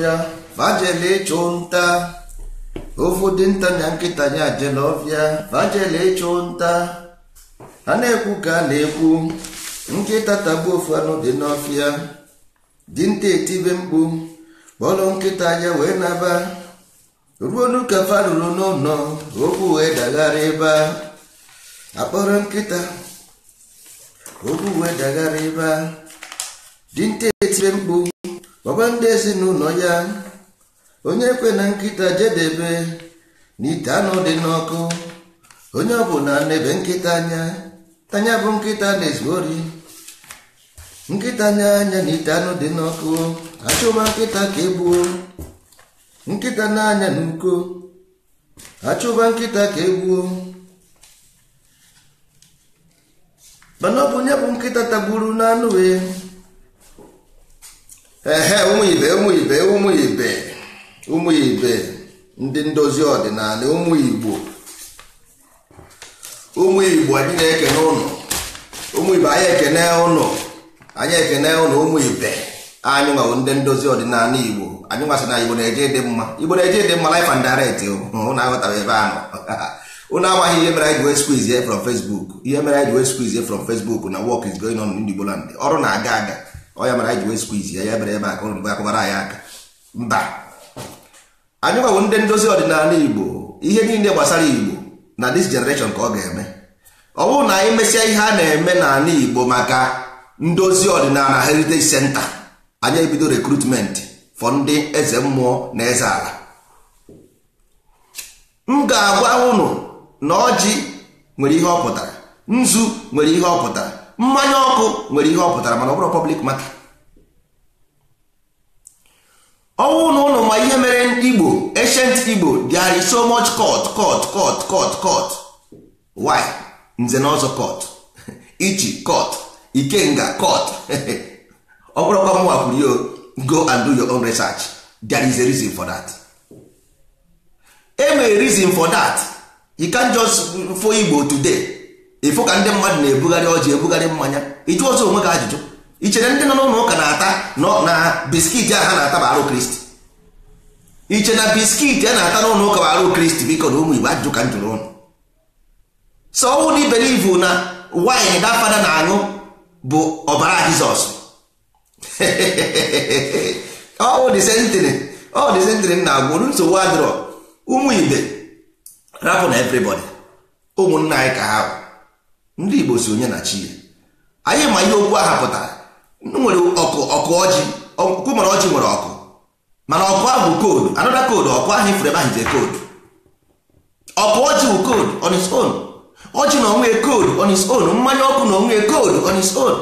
ọfịa vajele ịchụ nta ofu dị nta na nkịta ya jele ọfịa vajele ịchụ nta a na-ekwu ka a na-ekwu nkịta tagbu ofu anụ dị n'ọfịa dinta etibe mkpu kpọrọ nkịta ya wee naba ruonu ka farụrụ n'ụlọ okwu wee daghara ebe akpọrọ nkịta okwu wee daghara ebe a dinta etibe mkpu gwakwa ndị n'ụlọ ya onye ekwe na nkịta jedebe na ite anụ dị n'ọkụ onye ọ bụ na-ebe nkịta anya tanya bụ nkịta na-ezu ori nkịta anya anya na ite anụ dị n'ọkụ achụma nkịta ka egbuo nkịta na-anya n'uko achụba nkịta ka egbuo mana ọ bụ onye bụ nkịta tagburu n'anụ wee ehe ụmụ ibe ụmụ ibe ụmụ ibe ndị ndozi ọdịnala ụmụ igbo ụmụ igbo anyị na-ekene ụnụ ụmụ ibe anyị ekene ụnụ anyị ekene ụnụ ụmụ anyị nwawo ndị ndozi ọdịnala igbo anyị na igbo na-eje dị mma igbo na-eje dị mma life and direct ụmụ aghọtara ebe ụnụ amaghị ihe mere anyị from Facebook ihe mere anyị ọrụ na-aga aga ọya mara anyị ji wee squeeze ya ya mere ebe aka ụlọ mgbe akụbara anyị aka mba anyị gwawo ndị ndozi ọdịnala igbo ihe niile gbasara igbo na dis generation ka ọ ga-eme ọ bụrụ na anyị mesịa ihe a na-eme n'ala igbo maka ndozi ọdịnala heritage center anyị ebido rekrutment for ndị eze mmụọ na eze ala m ga-agwa unu na ọjị nwere ihe ọ pụtara nzu nwere ihe ọ pụtara mmanya ọkụ nwere ihe ọ pụtara mana ọ bụrụ pọblik maka ọnwụ na ụlọ ma ihe mere igbo ancient igbo there is so much court court court court court why nze na ọzọ court ichi court ikenga court ọ bụrụkwa mwa kwuru yo go and do your own research there is a reason for that enwere reason for that you can just fo igbo today ịfụ ka ndị mmadụ na-ebugharị ọjị ebugharị mmanya ịjụ ọzọ onwe gị ajụjụ i chere ndị nọ n'ụlọ ụka na-ata na biskit a ha na-ata bụ arụ kristi iche na biskit a na-ata n'ụlọ ụka bụ arụ kristi biko na ụmụ igbo ajụjụ ka m jụrụ ụnụ so ọnwụ na ibelivu na waịn dafada na-aṅụ bụ ọbara jizọs ọwụ disentịrị ọ disentịrị na-agwụ olu nsogbu adịrọ ụmụ igbe rapụ na evrịbọdị ụmụnna anyị ka ha bụ ndị igbo si onye na chi ya anyị ma ihe okwu aha pụtara nwere ọkụ ọkụ ọjị okwu mara ọjị nwere ọkụ mana ọkụ ahụ bụ koodu anọda koodu ọkụ ahụ ifere ebe ahụ koodu ọkụ ọjị bụ koodu on its own ọjị na onwe koodu on its own mmanya ọkụ na onwe koodu on its own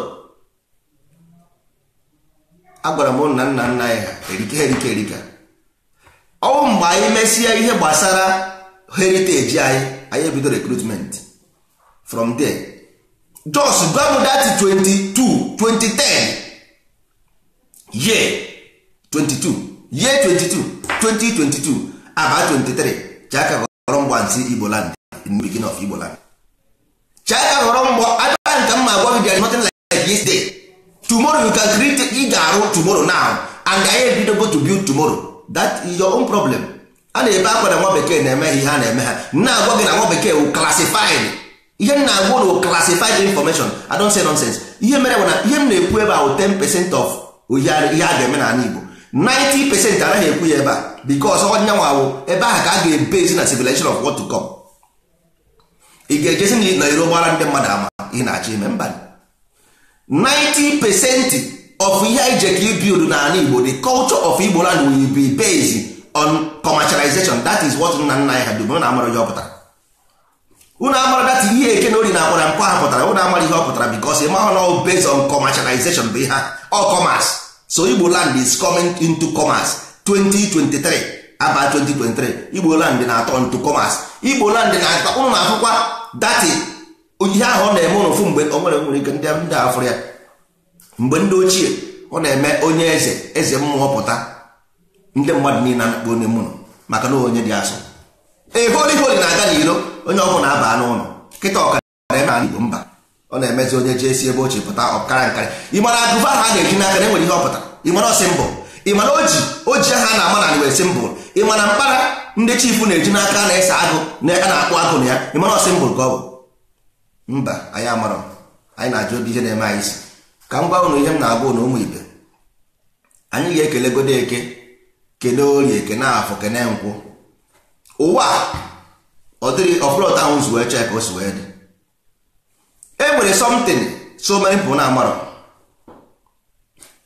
agwara m nna nna nna anyị ha erike erike erika ọnwụ mgbe anyị mesịa ihe gbasara heriteji anyị anyị ebido rekrutment from there just gwa m that 22 2010 year 22 year 22 2022 aba 23 chaka ghọrọ mgba nsị igbo land in the beginning of igbo land chaka ghọrọ mgba adịba nka mma agwa gị there is nothing like this day tomorrow you can create ị ga-arụ tomorrow now and anyị ebidogo to build tomorrow that is your own problem a na-ebe akwa na nwa bekee na-eme ihe a na-eme ha na-agwa gị na nwa bekee wu classified ihe m na-agwa ụlọ classified information I don't say nonsense ihe mere bụ na ihe m na-ekwu ebe ahụ 10 percent of ihe a ga-eme n'ala Igbo 90 percent anaghị ekwu ya ebe a because ọnyanwa awụ ebe ahụ ka a ga ebe ezi na civilization of what to come ị ga-ejezi na iro gbara ndị mmadụ ama ị na-achọ ime mba 90 percent of ihe anyị je ka ibild n'ala Igbo the culture of Igbo land will be based on commercialization that is what nna nna anyị ha dubere na amara ya ọ pụtara unu amara dat ihe eke na ori na akwara mpụ ha pụtara unu amara ihe ọ pụtara bikos ị mahụ na based on commercialization bụ ihe ọ commerce so Igbo land is coming into commerce 2023 aba 2023 Igbo land na-atọ into commerce Igbo land na-atọ na-afụkwa dati ihe ahụ ọ na-eme ụnụ fụ mgbe o nwere nwere ike ndị ndị afụrụ ya mgbe ndị ochie ọ na-eme onye eze eze mmụọ pụta ndị mmadụ niile na-akpọ onye mmụọ maka na onye dị asụ eholi holi na-aga n'ilo. onye ọgwụ na-aba n'ụlọ nkịta ọkara ebe a igbo mba ọ na-emezi onye ji esi ebe ochie pụta ọkara nkara ịmara agụba ha na-eji n'aka na enwere ihe ọpụta ịmara ọsị mbụ ịmana oji oji ha na-ama na wesi mbụ ịmana mkpara ndị chifu na-eji n'aka na-ese agụ na a na-akpụ agụ na ya ịmara ọsịmbụ mbụ ka ọ bụ mba anyị amara anyị na-ajụ obi ihe na-eme anyị isi ka m gwa ụnụ ihe m na-agwa ụnụ ụmụ ibe anyị ga-ekele godo eke kelee orie kene afọ kene nkwụ ụwa ọ dịghị ọfụrọta ahụ si wee chee ka o si wee dị e nwere something so many people na-amarọ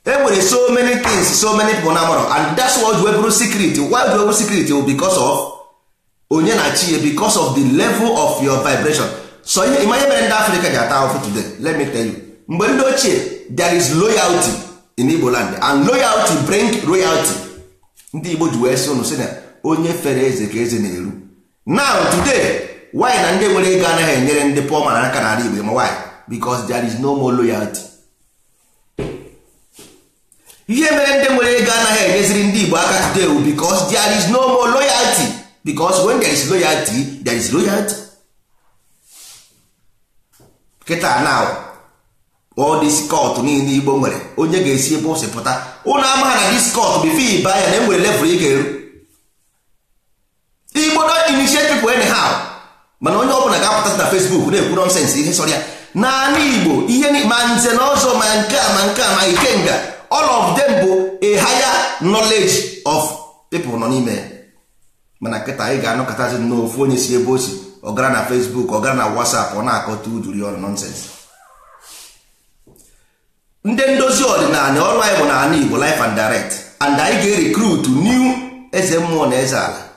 e nwere so many things so many people na-amarọ and that's why we wee bụrụ secret why we bụrụ secret bụ because of onye na chi because of the level of your vibration so ihe ịma mere ndị Africa ji ata ahụfụ today let me tell you mgbe ndị ochie there is loyalty in igbo land and loyalty bring royalty ndị igbo ji wee sị ụnụ sị na onye fere eze ka eze na-eru now today why na ndị nwere ego anaghị enyere ndị pụọ mana aka n'ala Igbo ma why because there is no more loyalty ihe mere ndị nwere ego anaghị enyeziri ndị Igbo aka today wu because there is no more loyalty because when there is loyalty there is loyalty kịta now all this court niile Igbo nwere onye ga-esi ebe o si pụta ụnụ amaghị na this court bifo ịba ya na e nwere level ị ga-eru igbo don initiate people anyhow mana onye ọbụla ga-apụta na Facebook na-ekwu nọnsensị ihe sọrọ ya n'ala igbo ihe ma nze na ọzọ ma nke a ma nke a ma ikenga all of them bụ a higher knowledge of people nọ n'ime mana nkịta anyị ga-anọkọtazi n'ofu onye si ebe o si ọgara na ọ ọgara na WhatsApp ọ na-akọta uduri ọrụ nọnsensị ndị ndozi ọdịnala ọrụ anyị bụ n'ala igbo life and direct and anyị ga-erikrut new eze mmụọ na eze ala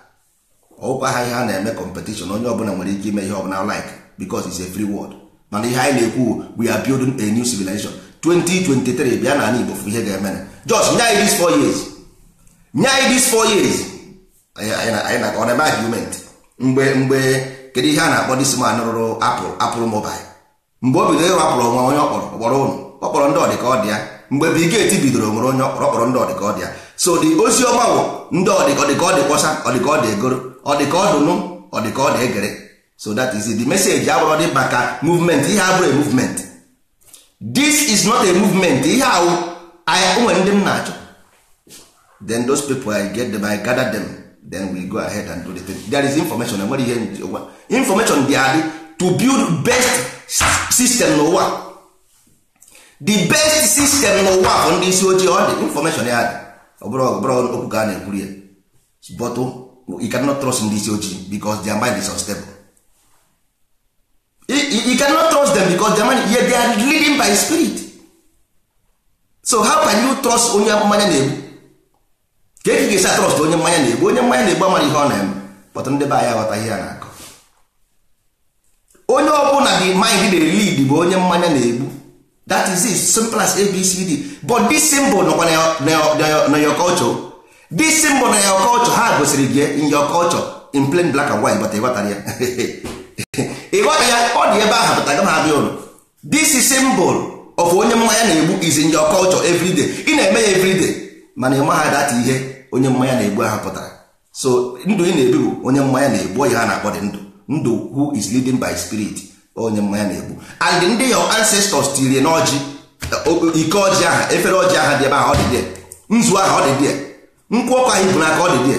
ọkwa ha ihe a na-eme kọmpetishọn onye ọbụla nwere ike ime ihe ọbụla like because it's a free world mana ihe anyị na-ekwu we are building a new civilization 2023 bịa n'ala Igbo fụ ihe ga-eme na just nye anyị this four years nye anyị this four years anyị na ọ na-eme argument mgbe mgbe kedu ihe a na-akpọ dis man rụrụ apụl apụl mobile mgbe o bidoro ịrụ apụl onwe onye ọkpọrọ ọkpọrọ ụnụ ọkpọrọ kpọrọ ndị ọdị ọ dị mgbe bigeti bidoro nwere onye ọkpọrọ ọkpọrọ ndị ọdị ọ dị so the ozi ọma bụ ndị ọdịkọdịkọdịkọsa ọdịkọdị egoro ọ dị ka ọ dụnụ ọ dị ka ọ egere so that is the message agwarọdị maka movement ihe abụrụ movement this is not a movement ihe ahụ onwe ndị m na-achọ then those people I get them I gather them then we go ahead and do the thing there is information enwere ihe njiwa information dị adị to build best system n'ụwa the best system n'ụwa bụ ndị isi ojii ọ dị information ya dị ọ bụrụ okwu ka a na-ekwuri ya bọtụ you cannot trust in this ojii because their mind is unstable you cannot trust them because their mind yet they are leading by spirit so how can you trust onye mmanya na-egbu ka e ga-esi trust onye mmanya na-egbu onye mmanya na-egbu amara ihe ọ na-eme kpọta ndị be anyị aghọtaghị ya na-akọ onye ọbụla dị mind na lead bụ onye mmanya na-egbu that is it simple as abcd but this symbol nọkwa na your culture this symbol na your culture ha gosiri gị in your culture in plain black and white bata ịghọtara ya ịghọta ya ọ dị ebe ahụ pụta gama abịa ụlọ this is symbol of onye mmanya na-egbu is in your culture every ị na-eme ya every day mana ịma ha data ihe onye mmanya na-egbu ahụ pụtara so ndụ ị na-ebi bụ onye mmanya na-egbu ya ha na-akpọ dị ndụ ndụ who is leading by spirit onye mmanya na-egbu and ndị your ancestors tiri n'ọjị ike ọjị aha efere ọjị aha dị ebe ahụ ọ dị dị nzu ahụ ọ dị dị nkwụ ọkụ anyị bụ n'aka ọ dị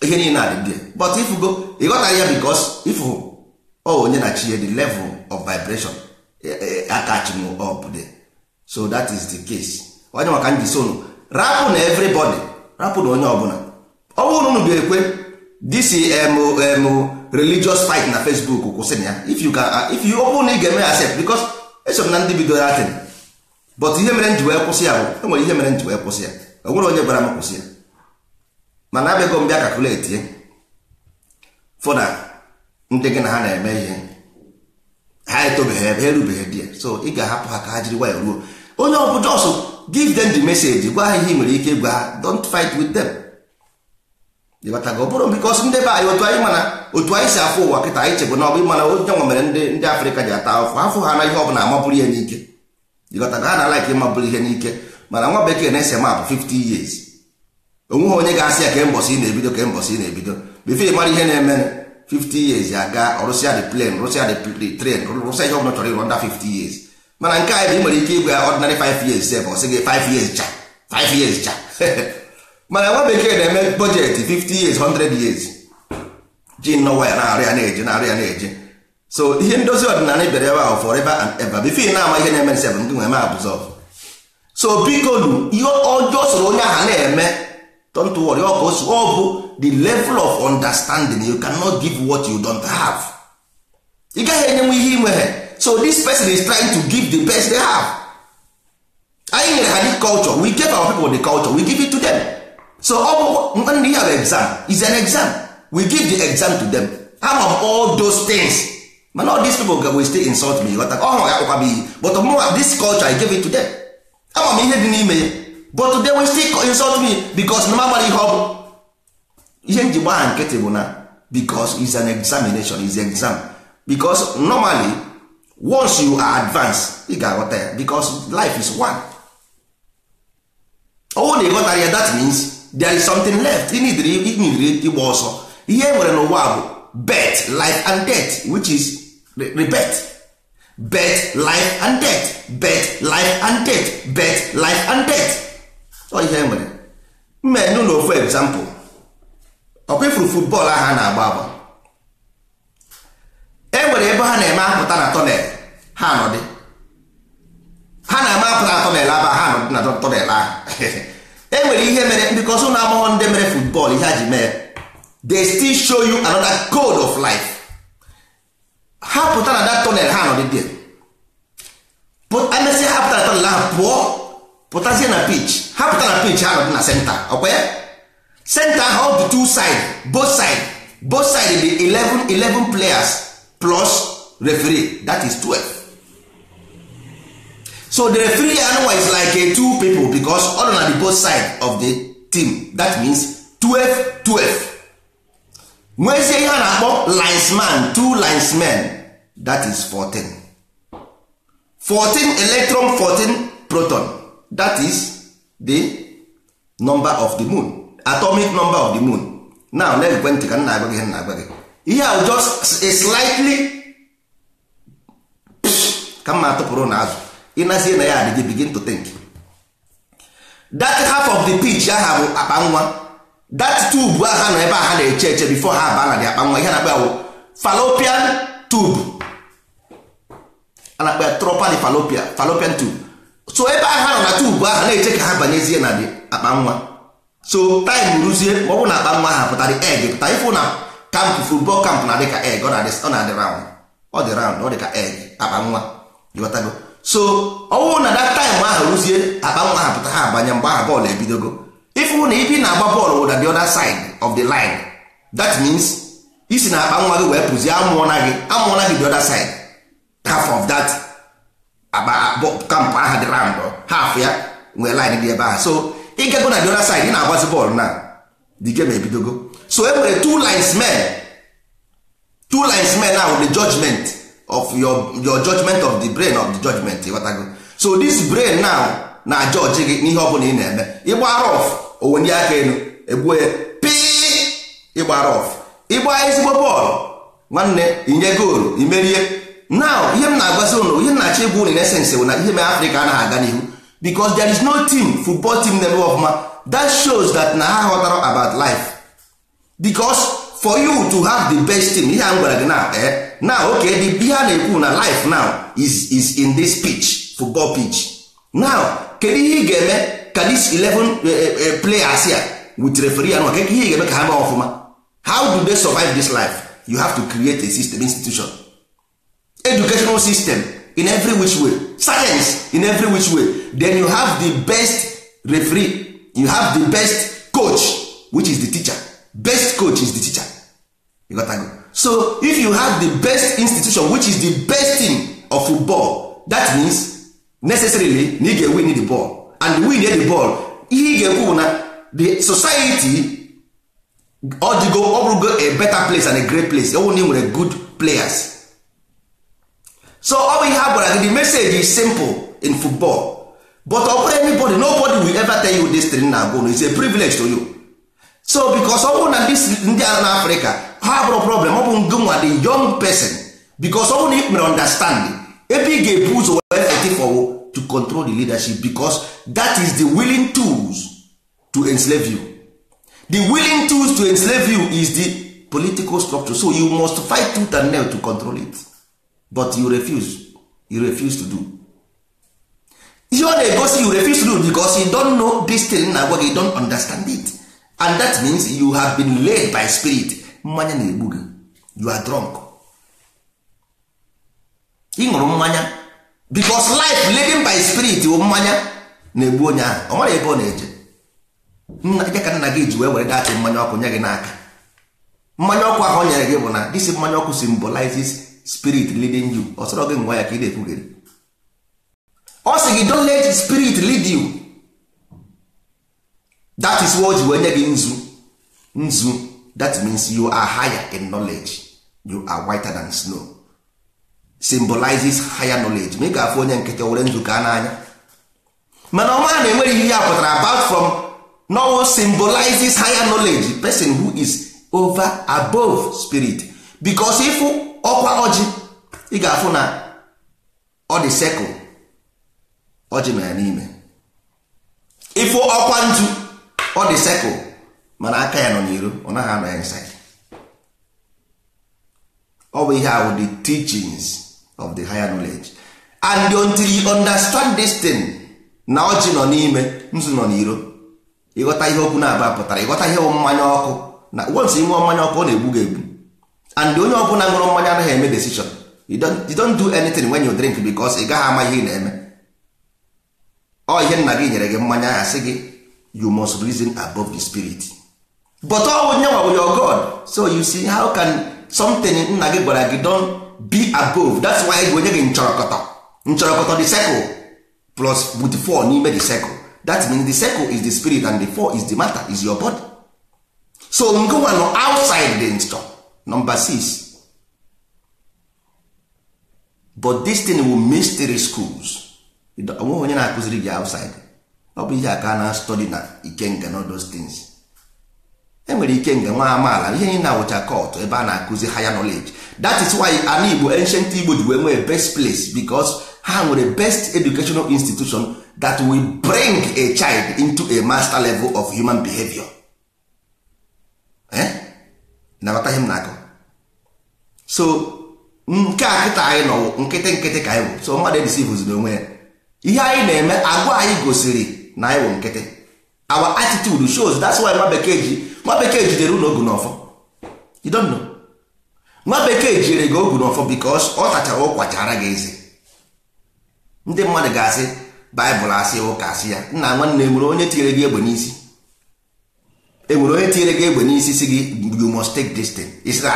die ihe niile adị die but ifugo ịghọtaghị ya because ifu ọ onye na chi the level of vibration eh, eh, akachim up there so that is the case onye maka ndị sonu rapụ na everybody rapụ na onye ọbụla ọ bụrụ unu ga-ekwe this mm religious fight na facebook kwụsịrị ya if you can uh, if you open na ị ga-eme accept because eso m na ndị bidoro atin but ihe mere nji wee kwụsị ya bụ enwere ihe mere nji wee kwụsị ya onwere onye gwara m kwụsị ya mana abịago m bịa kakuleti ya fụna ndị gị na ha na-eme ihe ha etobeghị ebe erubeghị di ya so ị ga-ahapụ ha ka ha jiri nwayọ ruo onye ọ bụ jos giv dem the message gwa ha ihe nwere ike gwa ha don't fight with them ịbatago bụrụ bikos ndị be anyị otu anyị mana otu anyị si afọ ụwa kịta anyị chegbu na ọ bụ ịmana onye nwa mere ndị ndị afrịka ji ata afọ afụ ha na ihe ọ bụla amabụrụ ya n'ike ịghọtago ha na-alaik ịmabụrụ ihe n'ike mana nwa bekee na-ese maapụ 50 years onweghị onye ga-asị ya ka mbọsị na-ebido ka mbọsị na-ebido bifo mara ihe na-eme 50 years aga rụsịa the plane rụsịa the train rụsịa ihe ọbụla chọrọ ịrụ nda 50 years mana nke anyị bụ ị nwere ike igwe ọdịnarị 5 years sef ọ sị 5 years cha 5 years cha mana nwa bekee na-eme bọjetị 50 years 100 years ji nnọwa ya na-arụ ya na-eje na-arụ ya na-eje so ihe ndozi ọdịnala bịara ebe ahụ forever and ever bifo na-ama ihe na-eme nsebụ ndị nwe ma abụzọv so biko nu ihe ọjọọ soro onye ahụ na-eme don't worry ọ ka ọ bụ the level of understanding you cannot give what you don't have ị gaghị enyenwe ihe inwe so this person is trying to give the best they have anyị nyere ha the culture we give our people the culture we give it to them so ọ bụ ndị have exam is an exam we give the exam to them am of all those things mana all these people will stay insult me ọhụrụ ya kpụkwa m iyi but oh, mụnwa this culture I give it to them ama m ihe dị n'ime ya but they will still insult me because na magbara ihe ọ bụ ihe nji gbaa nkịtị bụ na because is an examination is exam because normally once you are advanced ị ga-aghọta ya because life is one ọwụ na ịghọtara ya that means there is something left ị nidiri ịgba ọsọ ihe e nwere n'ụwa bụ bet life and death which is rebirth birth life and death birth life and death birth life and death ọ ihe nwere mme n'ụlọ ofu example ọkwa ifuru football ahụ a na-agba agba e nwere ebe ha na-eme apụta na tọnel ha nọdị ha na-eme apụta na tọnel aba ha nọdị na tọnel ahụ e nwere ihe mere bikọs ụlọ agbọghọ ndị mere football ihe ha ji mee they still show you another code of life ha pụta na dat tonel ha nọdị there emesịa ha pụta na tonel ahụ pụọ pụtazie na pitch ha pụta na pitch ha nọdị na senta ọkwa ya senta ahụ ọ bụ two side both side both side be 11 11 players plus referee that is 12 so the referee anụnwa is like two people because all nọ na the both side of the team that means 12 12 nwezie ihe a na-akpọ linesman two linesmen that is 14 14 electron 14 proton that is the number of the moon atomic number of the moon now na ekwentị ka nna agwa gị nna agwa gị ihe a just a slightly ka mma atụpụrụ na azụ ịnazie na ya adịghị begin to think that half of the pitch aha bụ akpa nwa that tube ha nọ ebe a ha na-eche eche bifo ha aba na dị akpa nwa ihe na-akpa awụ fallopian tube a na-akpa tropali falopia falopian tube so ebe a ha nọ na tube ahụ na-eche ka ha banyezie na dị akpa nwa so time ruzie ma ọ bụ na akpa nwa ha pụtara eg pụta ifụ na kamp football kamp na dị ka egg ọ na-adị round ọ dị round ọ dị ka eg akpa nwa ịghọtago so ọ bụrụ na that time ahụ ruzie akpa nwa ha pụta ha abanye mgbe aha bọọlụ ebidogo if na ibi na-agba bọọlụ na the other side of the line that means isi na akpa nwa gị wee pụzie amụọna gị amụọna gị the other side half of that kampụ aha dị round half ya nwee line dị ebe ahụ so ịgago na the other side ị na-agbazi bọọlụ na the game ebidogo so e nwere two lines men two lines men now the judgment of your your judgment of the brain of the judgment ịghọtago so this brain now na judge gị n'ihe ọ bụla ị na-eme ịgba rof onwe ndị aka elu egbuo ya pii ịgbara ọf ịgba ezigbo bọọlụ nwanne inye goolu imerie now ihe m na-agwazi ụnụ ihe m na-achọ ịbụ ụnụ nesensị bụ na ihe mere afrịka anaghị aga n'ihu because there is no team football team na-eme ọfụma that shows that na ha ghọtara about life because for you to have the best team ihe a m gwara gị na ee eh, now okay the ihe a na-ekwu na life now is is in this pitch football pitch now kedu ihe ị ga-eme ka this 11 eh, eh, eh, players here with referee and ka here you eme ka ha mee them how do they survive this life you have to create a system institution educational system in every which way science in every which way then you have the best referee you have the best coach which is the teacher best coach is the teacher you got go. so if you have the best institution which is the best team of football that means necessarily na ị ga-ewe the ball and win the ball ihe ị ga-ekwu bụ na the society ọ dịgo ọ bụrụgo a better place and a great place ọ bụ na nwere good players so ọ bụ ihe a gwara gị the message is simple in football but ọ bụrụ anybody nobody will ever tell you this thing na agwụ is a privilege to you so because ọ bụrụ na ndị a na afrịka ha bụrụ problem ọ bụ ngụnwa the young person because ọ bụrụ na ị mere understanding ebe ị ga-ebu ụzọ wee fetifowo to control the leadership because that is the willing tools to enslave you the willing tools to enslave you is the political structure so you must fight tooth and nail to control it but you refuse you refuse to do ihe ọ egosi you refuse to do because you don't know this thing na-agwa you don't understand it and that means you have been led by spirit mmanya na-egbu gị you are drunk ị ṅụrụ mmanya because life living by spirit bụ mmanya na-egbu onye ahụ ọ mara ebe ọ na-eje nna ya ka nna gị ji wee were datị mmanya ọkụ nye gị n'aka mmanya ọkụ ahụ o nyere gị bụ na this mmanya ọkụ symbolizes spirit leading you ọ sọrọ gị ngwa ya ka ị na-ekwugere ọ sị gị don't let spirit lead you that is what ji wee nye gị nzu nzu that means you are higher in knowledge you are whiter than snow symbolizes higher knowledge ma ị ga-afụ onye nkịtị were nzukọ n'anya mana ọma na enweghị ihe ya pụtara about from no symbolizes higher knowledge person who is over above spirit because ịfụ ọkwa ọjị ị ga-afụ na ọ dị circle ọjị ma ya n'ime ịfụ ọkwa ntu ọ dị sekụl mana aka ya nọ n'iro ọ naghị anọ ya nsị ọ bụ ihe ahụ the teachings of the higher knowledge and until you understand this thing na ọjị nọ n'ime nzu nọ n'iro ịghọta ihe okwu na-aba pụtara ịghọta ihe mmanya ọkụ na once ịṅụọ mmanya ọkụ ọ na-egbu gị egbu and onye ọ bụla ṅụrụ mmanya anaghị eme decision you don't, you don't do anything when you drink because ị gaghị ama ihe ị na-eme ọ ihe nna gị nyere gị mmanya ya sị gị you must reason above the spirit but ọ onye nwa your God so you see how can something nna gị gwara gị don be above that's why onye gị nchọrọkọtọ nchọrọkọtọ the circle plus with four n'ime the circle that means the circle is the spirit and the four is the matter is your body so ngụwa nọ outside the store, number six but this thing will mystery schools onwe onye na-akụziri gị outside ọ bụ ihe aka na study na ikenga na those things enwere ike nga nwa amaala ihe anyị na-awụcha kọtụ ebe a na-akụzi higher knowledge that is why ana igbo ancient igbo ji wee nwee best place because ha nwere best educational institution that will bring a child into a master level of human behavior eh? nabata ihe na-akọ so nke a anyị nọ nkịtị nkịtị ka anyị bụ so mmadụ edisivuzi n'onwe ya ihe anyị na-eme agwa anyị gosiri na anyị wụ nkịtị our attitude shows that's why nwa bekee ji nwa bekee jidere ụlọ ogu n'ọfọ you don't know nwa bekee jidere gị ogu n'ọfọ because ọ tachara ụkwachara gị eze ndị mmadụ ga-asị baịbụl asị ụka asị ya nna nwanne enwere onye tinyere gị egbe n'isi enwere onye tinyere gị egbe n'isi si gị you must take this thing isi na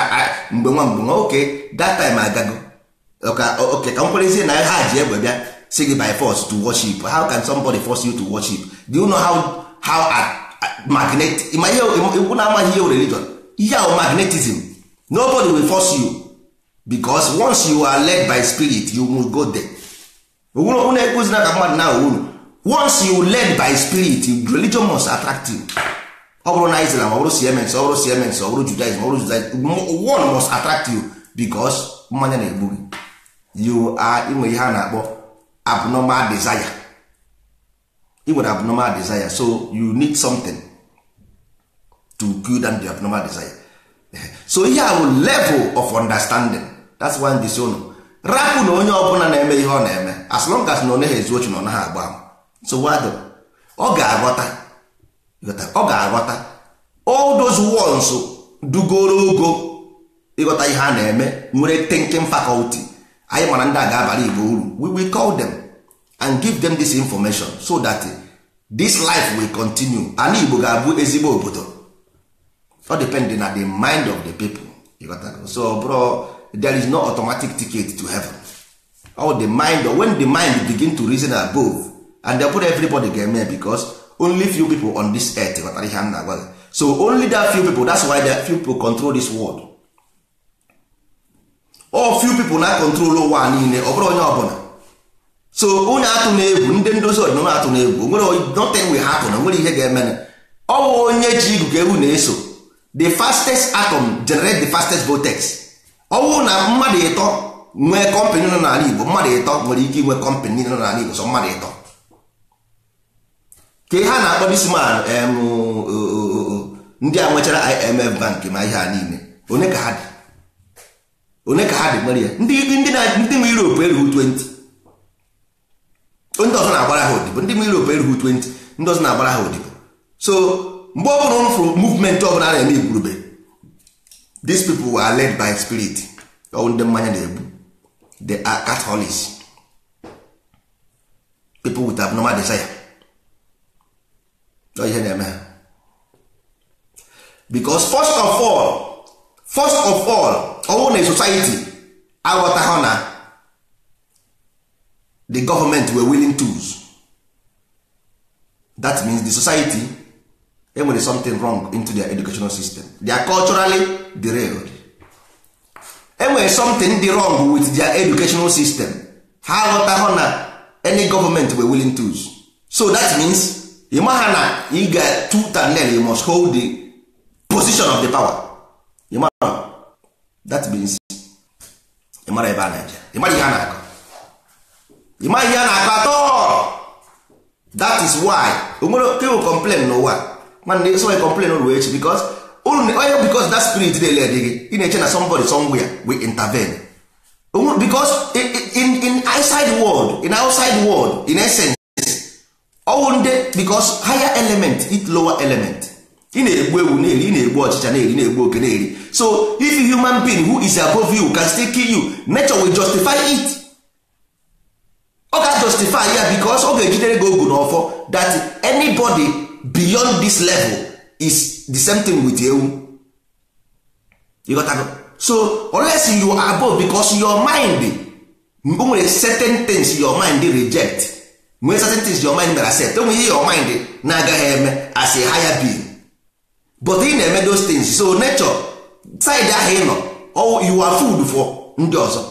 mgbe nwa mgbe nwa oke that time agago oke ka m kwerezie na ha ji egbe bịa si gị by force to worship how can somebody force you to worship do you know how how magnet ma ihe ikwu na amaghị ihe religion ihe ahụ magnetism nobody will force you because once you are led by spirit you go there ogwurụ na ekwuzina ka mmadụ na unu once you led by spirit religion must attract you ọ bụrụ na ọ bụrụ siemens ọ bụrụ siemens ọ bụrụ judaism ọ bụrụ judaism one must attract you because mmanya na-egbu gị you are inwe ihe a na-akpọ abnormal desire would nwere abnormal desire so you need something to kill down the abnormal desire so ihe a bụ level of understanding that's why ndị si rapụ na onye ọbụla na-eme ihe ọ na-eme as long as na ọ naghị ezu ochi na ọ naghị agba so wado ọ ga-aghọta ọ ga-aghọta all those ones dugoro ogo ịghọta ihe a na-eme nwere thinking faculty anyị mara ndị a ga-abara igbo uru we will call them and give them this information so that eh, this life will continue ala igbo ga-abụ ezigbo obodo ọ depending na the mind of the people so bro there is no automatic ticket to heaven all the mind when the mind begin to reason above and they put everybody get eme because only few people on this earth ghọtara ihe na-agwa so only that few people that's why that few people control this world all few people na control ụwa niile ọ bụrụ onye ọbụla so onye atụ na-egwu ndị ndozi ọdịnala atụ na-egwu nwere nothing will happen nwere ihe ga-emenụ ọwụ onye ji igugu ewu na-eso the fastest atom generate the fastest vortex ọwụ na mmadụ ịtọ nwee kọmpanị nọ n'ala Igbo mmadụ ịtọ nwere ike inwe kọmpanị nọ n'ala Igbo sọ mmadụ ịtọ ka ha na-akpọ disman ndị a nwechara IMF bank ma ihe a niile onye ka ha dị onye ka ha dị nwere ya ndị Europe erughị 20 ndị ọzọ na-agbara ha odibo ndị mmiri Europe erughị 20 ndị ọzọ na-agbara ha odibo so mgbe ọ bụla fụrụ movement ọbụla na-eme igwurube these people were led by spirit ọwụ ndị mmanya na-egbu they are Catholics people with abnormal desire ọ ihe na-eme ha because first of all first of all ọwụ na society aghọtaghị na the government were willing tools that means the society enwere something wrong into their educational system they are culturally derailed enwere something dị wrong with their educational system ha aghọtahụ na any government were willing tools so that means ịmaha na ị ga tut and you must hold the position of the power ịmara that means ịmara ebe a na-eje ịmara ihe a na-akọ ị maghị ihe na-akọ atọ that is why onwere people complain n'ụwa nwanne esi onye complain ruo echi because onye oh, oh, because that spirit dị ele gị ị na-eche na somebody somewhere we intervene because in, in outside world in outside world in essence ọwụ oh, ndị because higher element it lower element ị na-egbu ewu na-eri ị na-egbu ọchịcha na-eri na-egbu oke na-eri so if human being who is above you can still kill you nature will justify it ọ ga-justify ya because ọ ga-ejidere gị ogu n'ọfọ that anybody beyond this level is the same thing with ewu you got so unless you are above because your mind nwere certain things your mind reject nwere certain things your mind mere accept enwere ihe your mind na-agaghị eme as a higher being but ị na-eme those things so nature side ahụ ịnọ. you are food for ndị ọzọ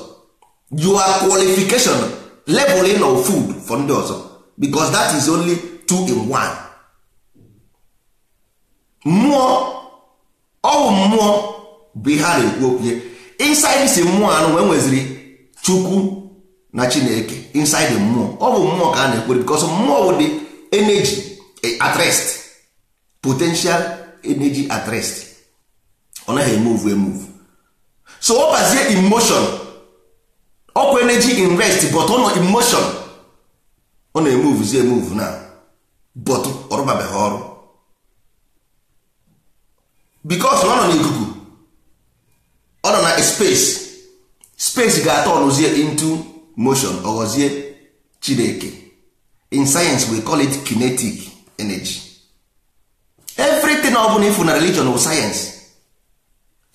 your qualification leveling of food for ndị ọzọ because that is only two in one mmụọ ọwụ mmụọ bụ ihe a ekwu okwu inside si mmụọ anụ wee nweziri chukwu na chineke inside mmụọ ọ bụ mmụọ ka a na ekwere because mmụọ bụ dị energy at rest potential energy at rest ọ naghị emove emove so ọ bazie emotion ọkwa energy in rest but ọ nọ emotion ọ na-emuvuzi emuvu na but ọrụbabeghị ọrụ because ọ nọ n'ikuku ọ nọ na space space ga-atọ ọnụzie into motion ọghọzie chineke in science we call it kinetic energy everything ọ bụla ifu na religion bụ science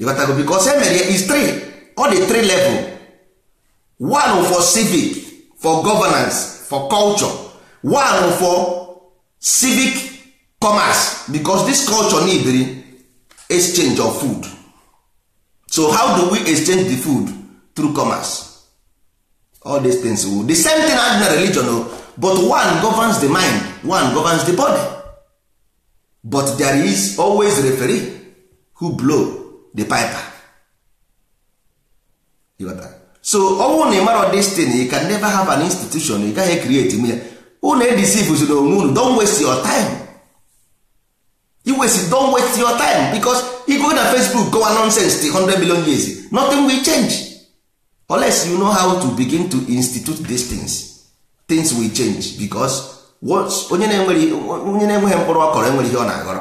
ịghọtago because e ya is three ọ dị three level one for civic for governance for culture one for civic commerce because this culture need exchange of food so how do we exchange the food through commerce all these things the same thing as na religion oh. but one governs the mind one governs the body but there is always referee who blow the piper so ọnwụ na ị mara destiny you can never have an institution ị gaghị create m ya unu edisivuzi na onwe unu don waste your time iwesi don waste your time because you go na facebook gowa nonsense the 100 million years nothing will change unless you know how to begin to institute these things things will change because onye na-enweghị mkpụrụ ọ enweghị ihe ọ na-aghọrọ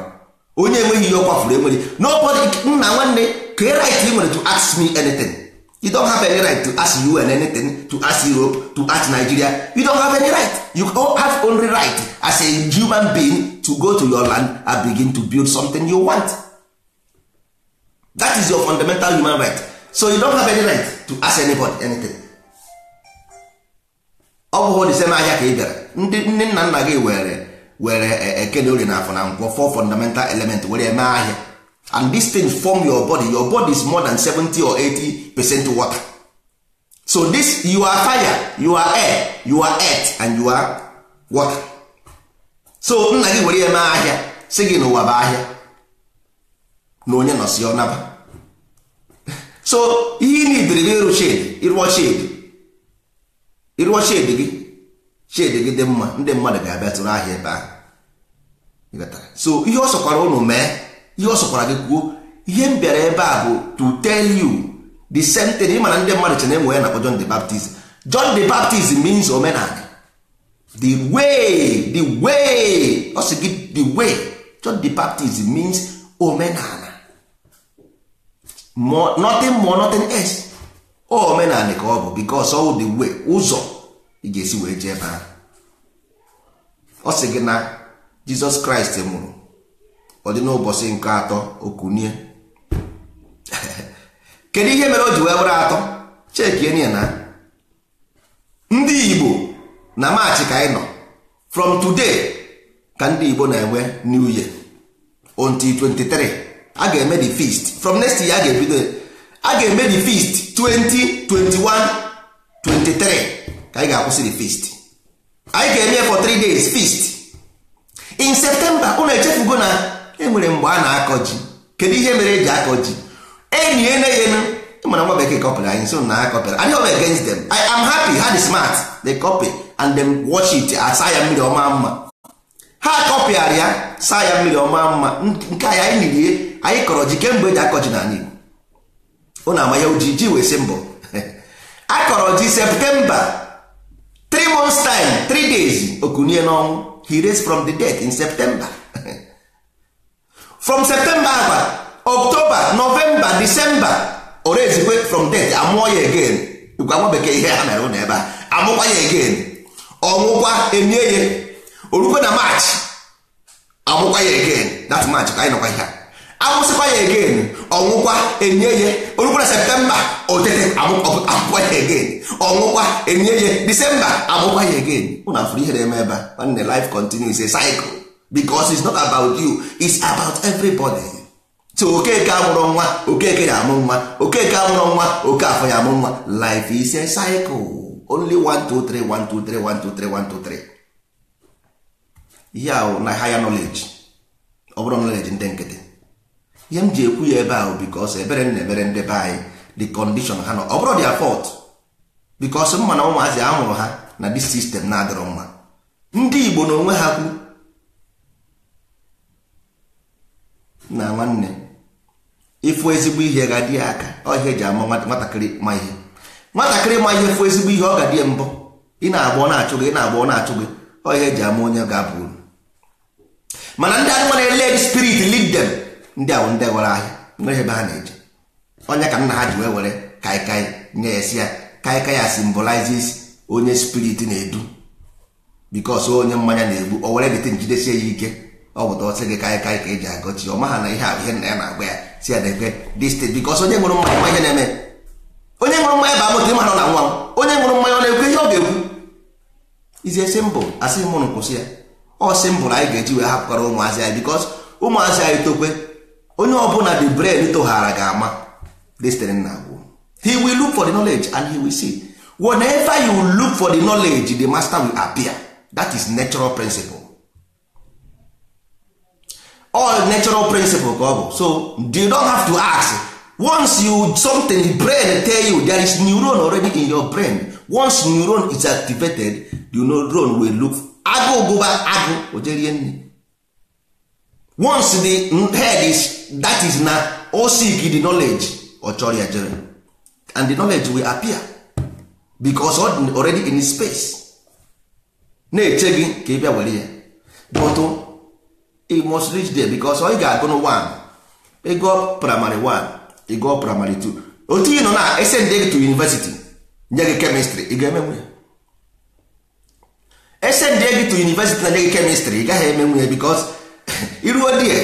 onye enweghị ihe ọ kwafuru enweghị nna nwanne ka right ị nwere to ask me anything you don't have any right to ask UN anything to ask Europe to ask Nigeria you don't have any right you have only right as a human being to go to your land and begin to build something you want that is your fundamental human right so you don't have any right to ask anybody anything ọ bụghị the same ahịa ka ị bịara ndị nne nna nna gị were were e, e, ekene orie na afọ na nkwọ fọ fundamental element were mee ahịa and this thing form your body your body is more than 70 or 80 percent water so this you are fire you are air you are earth and you are water so nna gị were ya mee ahịa si gị n'ụwa bụ ahịa na onye nọsi ọnaba so ihe ị nidiri gị ịrụ shed ịrụọ shed ịrụọ shed gị shed gị dị mma ndị mmadụ ga-abịa tụrụ ahịa ebe ahụ so ihe ọ sọkwara ụnụ mee ihe ọ sọkwara gị kwuo ihe m bịara ebe a bụ to tell you the same thing ị na ndị mmadụ chere enwe ya na John the Baptist John the Baptist means omenala the way the way ọ sị gị the way John the Baptist means omenala nothing more nothing else ọ omenala ka ọ bụ because all the way ụzọ ị ga-esi wee jee ebe ahụ ọ sị gị na Jizọs Kraịst mụrụ. ọ dị n'ụbọchị nke atọ okunie kedu ihe mere o ji wee were atọ chekie ya na ndị igbo na maachị ka anyị nọ from today ka ndị igbo na-enwe new year until 23 a ga-eme the feast from next year a ga-ebido a ga-eme the feast 2021 23 ka anyị ga-akwụsị the feast anyị ga-eme for 3 days feast in september unu echefugo na enwere mgbe a na-akọ ji kedu ihe mere e ji akọ ji enyi eneghenu mana nwa bekee kọpịrị anyị so na akọpịrị anyị ọbụ against them I am happy ha dị smart they copy and them watch it asa ya mmiri ọma mma ha kọpịara ya saa ya mmiri ọma mma nke anyị anyị nirie anyị kọrọ ji kemgbe eji akọ ji na anyị ọ na-ama ya uji ji wee si mbọ akọrọ ji septemba three months time three days okunie n'ọnwụ he raised from the dead in septemba from septemba akpa october novemba december ore ezikwe from det amụọ ya again ikwa nwa bekee ihe ha mere ụlọ ebe a amụkwa ya again Ọmụkwa enye ya orukwe na maachị amụkwa ya again that maachị ka anyị nọkwa ihe amụsịkwa ya again ọnwụkwa enye ya orukwe na septemba otete amụkwa ya again ọnwụkwa enye ya disemba amụkwa ya again ụna fụrụ ihe na-eme ebe a nwanne life continues a because is not about you is about everybody so okeke amụrụ nwa okeke ya amụ nwa okeke amụrụ nwa oke afọ ya amụ nwa life is a cycle only 1 2 3 1 2 3 1 2 3 na higher knowledge ọ knowledge ndị nkịtị ihe m ji ekwu ya ebe ahụ because ebere na-emere ndị be anyị the condition ha nọ ọ bụrụ their fault because mma na ụmụazị a mụrụ ha na dis system na-adịrọ mma ndị Igbo na onwe ha kwu na nwanne ịfụ ezigbo ihe ga-adị ya aka ọhịa ji ama nwatakịrị ma ihe nwatakịrị ma ihe fụ ezigbo ihe ọ ga-adị mbọ ị na-agba ọ na-achụ gị ị na-agba ọ na-achụ gị ọhịa ji ama onye ga-abụ uru mana ndị anụmanụ led spirit lead ndị ahụ ndị gwara ahịa nwere ebe ha na-eje onye ka nna ha ji wee were kaikai nye ya ya kaikai ya onye spirit na-edu bikos onye mmanya na-egbu o were dịte njidesie ya ike ọ bụta ọsị gị ka kaị ka eji agọchi ọ maha na ihe ahụ ihe nna ya na-agba ya si ya na-ekwe distri bikọs onye nwụrụ mmanya ma ihe na-eme onye nwụrụ mmanya bụ amụta ịmara na nwa m onye nwụrụ mmanya ọ na-ekwe ihe ọ ga-ekwu izie si mbụ asị mụrụ nkwụsị ya ọ sị mbụ na anyị ga-eji wee hapụkwara ụmụazị anyị bikọs ụmụazị anyị tokwe onye ọ ọbụla the brain toghara ga-ama destiny na agwụ he will look for the knowledge and he will see whenever you look for the knowledge the master will appear that is natural principle all natural principle ka ọ bụ so you don't have to ask once you something brain tell you there is neuron already in your brain once neuron is activated the neuron will look agụ gụba agụ ojerie nne once the head is that is na o seek the knowledge ọ chọrọ ya jere and the knowledge will appear because already in space na-eche gị ka ị bịa were ya but it must reach there because ọ ga-agụ primary one primary two otu ị nọ na gị to university nye gị kemistri ị ga to university na nye gị ị gaghị emenwu ya because iruo di ya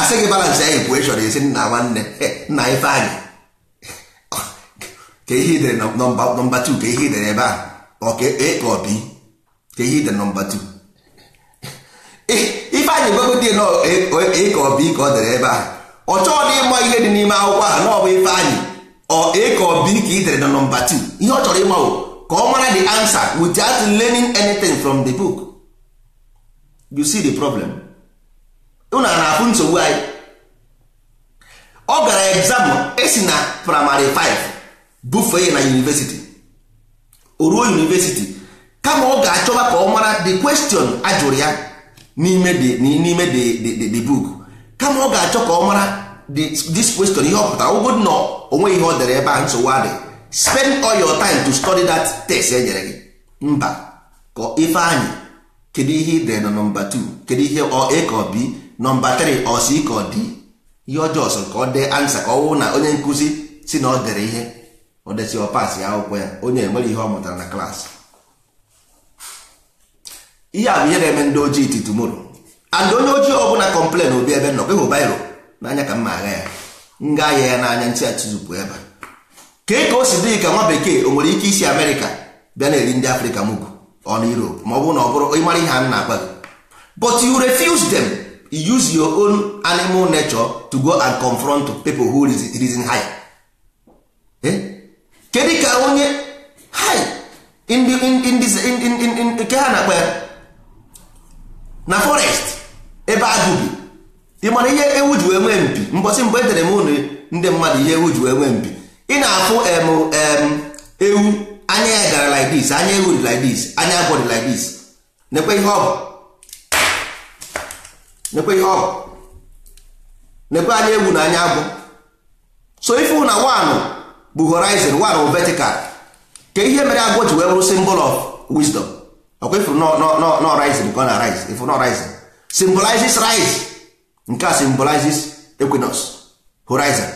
asị gị balance ya equation esi nna nwanne nna ife anyị ka ihe nọmba 2 ka ebe a ọ ka e, ọ 2 ya igwegote ịka ọ bụ ọ dere ebe ahụ ọ chọọ na ịma ihe dị n'ime akwụkwọ ahụ na ọ bụ ife anyị ọ ịka ọ bụ ike idere na nọmba 2 ihe ọ chọrọ ịma ka ọ mara the answer without learning anything from the book you see the problem unu na-afụ nsogbu anyị ọ gara egzam esi na primary 5 bufee ya na university o ruo university kama ọ ga-achọba ka ọ mara the question ajụrụ ya n'ime n'ime the book kama ọ ga-achọ ka ọ mara this question ihe ọ pụtara ọgụgụ nọ onwe ihe ọ dere ebe a nsogbu adị spend all your time to study that text e nyere gị mba ka ife anyị kedu ihe ị dere na nọmba 2 kedu ihe ọ a ka b nọmba 3 ọ si ka ọ dị ihe ọjọọ sọ ka ọ dee ansa ka ọ wụ na onye nkụzi si na ọ dere ihe ọ desi ọ pas ya akwụkwọ ya onye enwere ihe ọ mụtara na klaasị ihe a bụ ihe na-eme ndị ojii titi moro and onye ojii ọbụla kọmplen obi ebe nọ ịhụ bairo n'anya ka mma agha ya nga ahịa ya n'anya ntị atụzupụ ebe a kee ka o si dị ka nwa bekee o nwere ike isi amerịka bịa na-eri ndị afrịka mugu ọnụ europe ma ọ bụ na ọ bụrụ ịmara ihe a na-agwa gị but you refuse them you use your own animal nature to go and confront people who reason high eh? kedu ka onye high nke ha na-akpa ya na forest ebe agụ bi ị mara ihe ewu ji wee nwee mpi mbọsị mgbe edere m ụnụ ndị mmadụ ihe ewu ji wee nwee mpi ị na-afụ ewu anya ya gara like this anya ewu dị like this anya agwọ dị like this nekwe ihe ọ bụ nekwe ihe ọ bụ nekwe anya ewu na anya agwọ so ife na one bụ horizon one bụ vertical ka ihe mere agwọ ji wee bụrụ symbol of wisdom ọkwa ifuru nọ rice na ọ na rice ifuru nọ symbolizes rise nke a symbolizes equinox horizon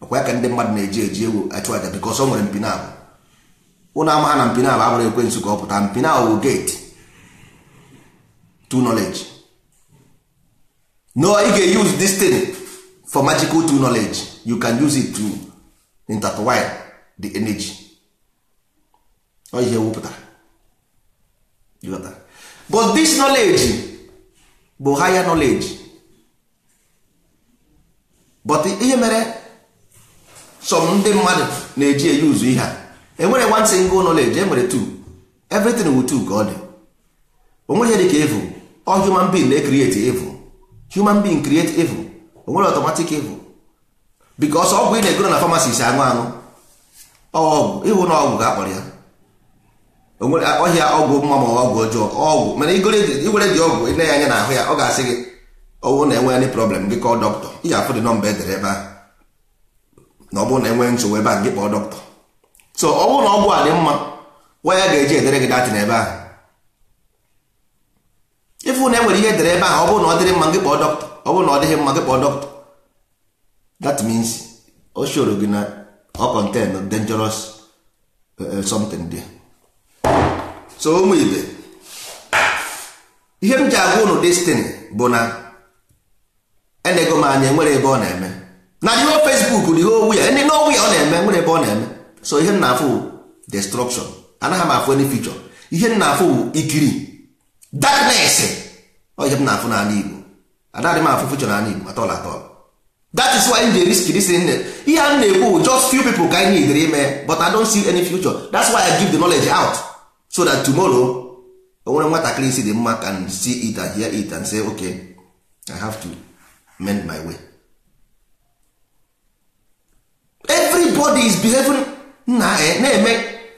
ọkwa ya ka ndị mmadụ na-eji eji ewu achụ aja bikos ọ nwere mpinabụ ụnụ amaha na mpinabụ abụrụ ekwensu ka ọ pụta mpinabụ bụ gate to knowledge no ị ga-use this thing for magical to knowledge you can use it to intertwine the energy ọ ihe wupụtara but this knowledge bụ higher knowledge but ihe mere some ndị mmadụ na-eji eyi ụzọ ihe a enwere one single knowledge enwere two everything wu two ka ọ dị onweghị dị ka evil all human being na-ecreate evil human being create evil onwere automatic evil because ọgwụ ị na-egoro na pharmacy si aṅụ aṅụ ọgwụ ịhụ na ọgwụ ga-akpọrọ ya onwere ọhịa ọgwụ mma ma ọgwụ ọjọọ ọgwụ mana igwere dị ọgwụ ị na-anya na ahụ ya ọ ga-asị gị ọwụ na enwe any problem gị kọọ dọkịta ihe afụ dị nọmba edere ebe ahụ na ọ bụrụ na enwe nsogbu ebe ahụ gị kpọọ dọkịta so ọ bụrụ na ọgwụ a dị mma nwa ya ga-eji edere gị datị na ebe ahụ ịfụ na enwere ihe edere ebe ahụ ọ bụrụ na ọ dịrị mma gị kpọọ dọkịta ọ bụrụ na ọ dịghị mma gị kpọọ dọkịta that means o shoro gị na ọ contain dangerous eh, eh, something there so ụmụ ibe ihe m ji agwa ụnụ destiny bụ na enego m anya nwere ebe ọ na-eme na ihe Facebook dị owu ya ndị n'ọnwụ ya ọ na-eme nwere ebe ọ na-eme so ihe m na-afụ destruction anaghị m afụ any feature ihe m na-afụ bụ ikiri darkness ọ ihe m na-afụ n'ala Igbo anaghị m afụ feature n'ala Igbo atọla atọla that is why nje risk is this nne ihe a na-ekwu just few people ka anyị nyidere ime but I don't see any future that's why I give the knowledge out so that tomorrow nwere nwatakịrị isi dị mma can see it and hear it and say okay i have to mend my way everybody is behaving nna na-eme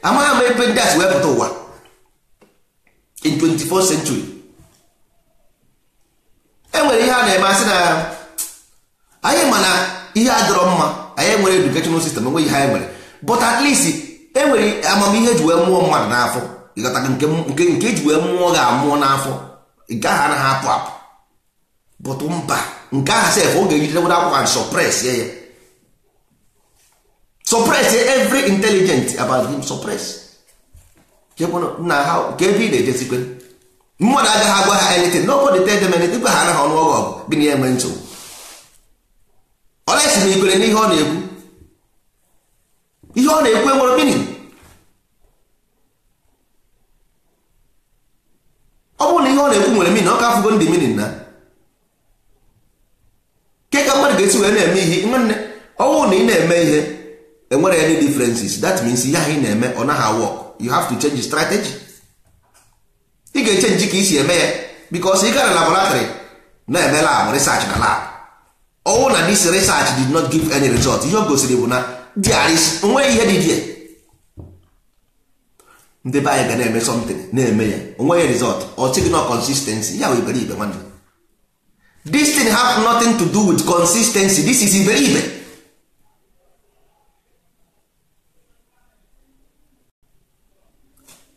amaghị ama ebe ndị asị si wee pụta ụwa in 24th century enwere ihe a na-eme asị na anyị ma na ihe adọrọ mma anyị nwere educational system enweghị ihe anyị nwere but at least enwere amamihe ji wee mụọ mmadụ n'afọ ịghọtara nke nke eji wee mụọ ga-amụọ n'afọ nke aha anaghị apụ apụ bụtụ mba nke ahụ sef ọ ga-ejidewodo akwụkwọ and suppress ya ya suppress every intelligent about him suppress na ha nke ebe ị na-ejesikwe mmadụ agaghị agwa ha anything ha anaghị ọnụ ọgụ na enwe nsogbu Ọla na-esi na ikwere n'ihe ọ na-ekwu ihe ọ na-ekwu enwere ihe ọ na-ekwu nwere mini ọ ka afụgo ndị mini na ke ka mmadụ ga-esi wee na-eme ihe nwanne ọnwụ na ị na-eme ihe enwere any differences that means ihe ahụ ị na-eme ọ naghị work you have to change strategy ị ga-echenji ka isi eme ya because ị gara na laboratory na-eme lab research na lab ọnwụ na dis research did not give any result ihe o gosiri bụ na there onweghị ihe dị ndị be anyị ga na-eme something na-eme ya onweghị result ọ sịghị na consistency ya wụ iberibe nwanne this thing have nothing to do with consistency this is ibe.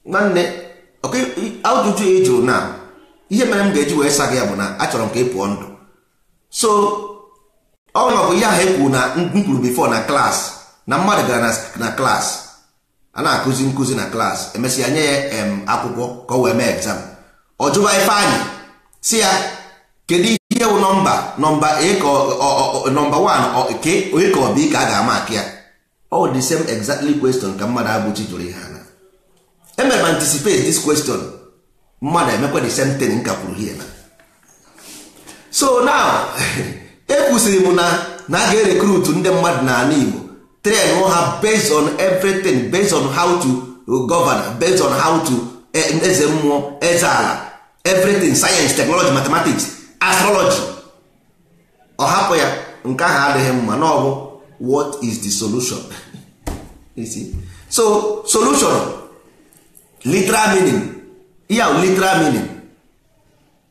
nwanne ajụjụ ị jụrụ na ihe mere m ga-eji wee sa ya bụ na achọrọ m ka ị pụọ ndụ so ọ bụ ihe ahụ e kwuru na m kwuru before na klas na mmadụ gara na klaasị. a na-akụzi nkụzi na klaasị emesịa nye ya akwụkwọ ka o wee mee egzam ọ jụba ife anyị si ya kedu ihe wụ nọmba nọmba nọmba 1 ke onye ka ọ bụ ka a ga-ama aka ya ọ the same exactly question ka mmadụ abụchi jụrụ ihe ana emere m anticipate this question mmadụ emekwa the same thing nka kwuru hie na so now ekwusịrị m na na a ga-erekrutu ndị mmadụ n'ala Igbo train ha based on everything based on how to govern based on how to eh, eze mmụọ eze ala everything science technology mathematics astrology ọ hapụ ya nke ahụ adịghị mma n'ọbụ what is the solution you see so solution literal meaning ihe literal meaning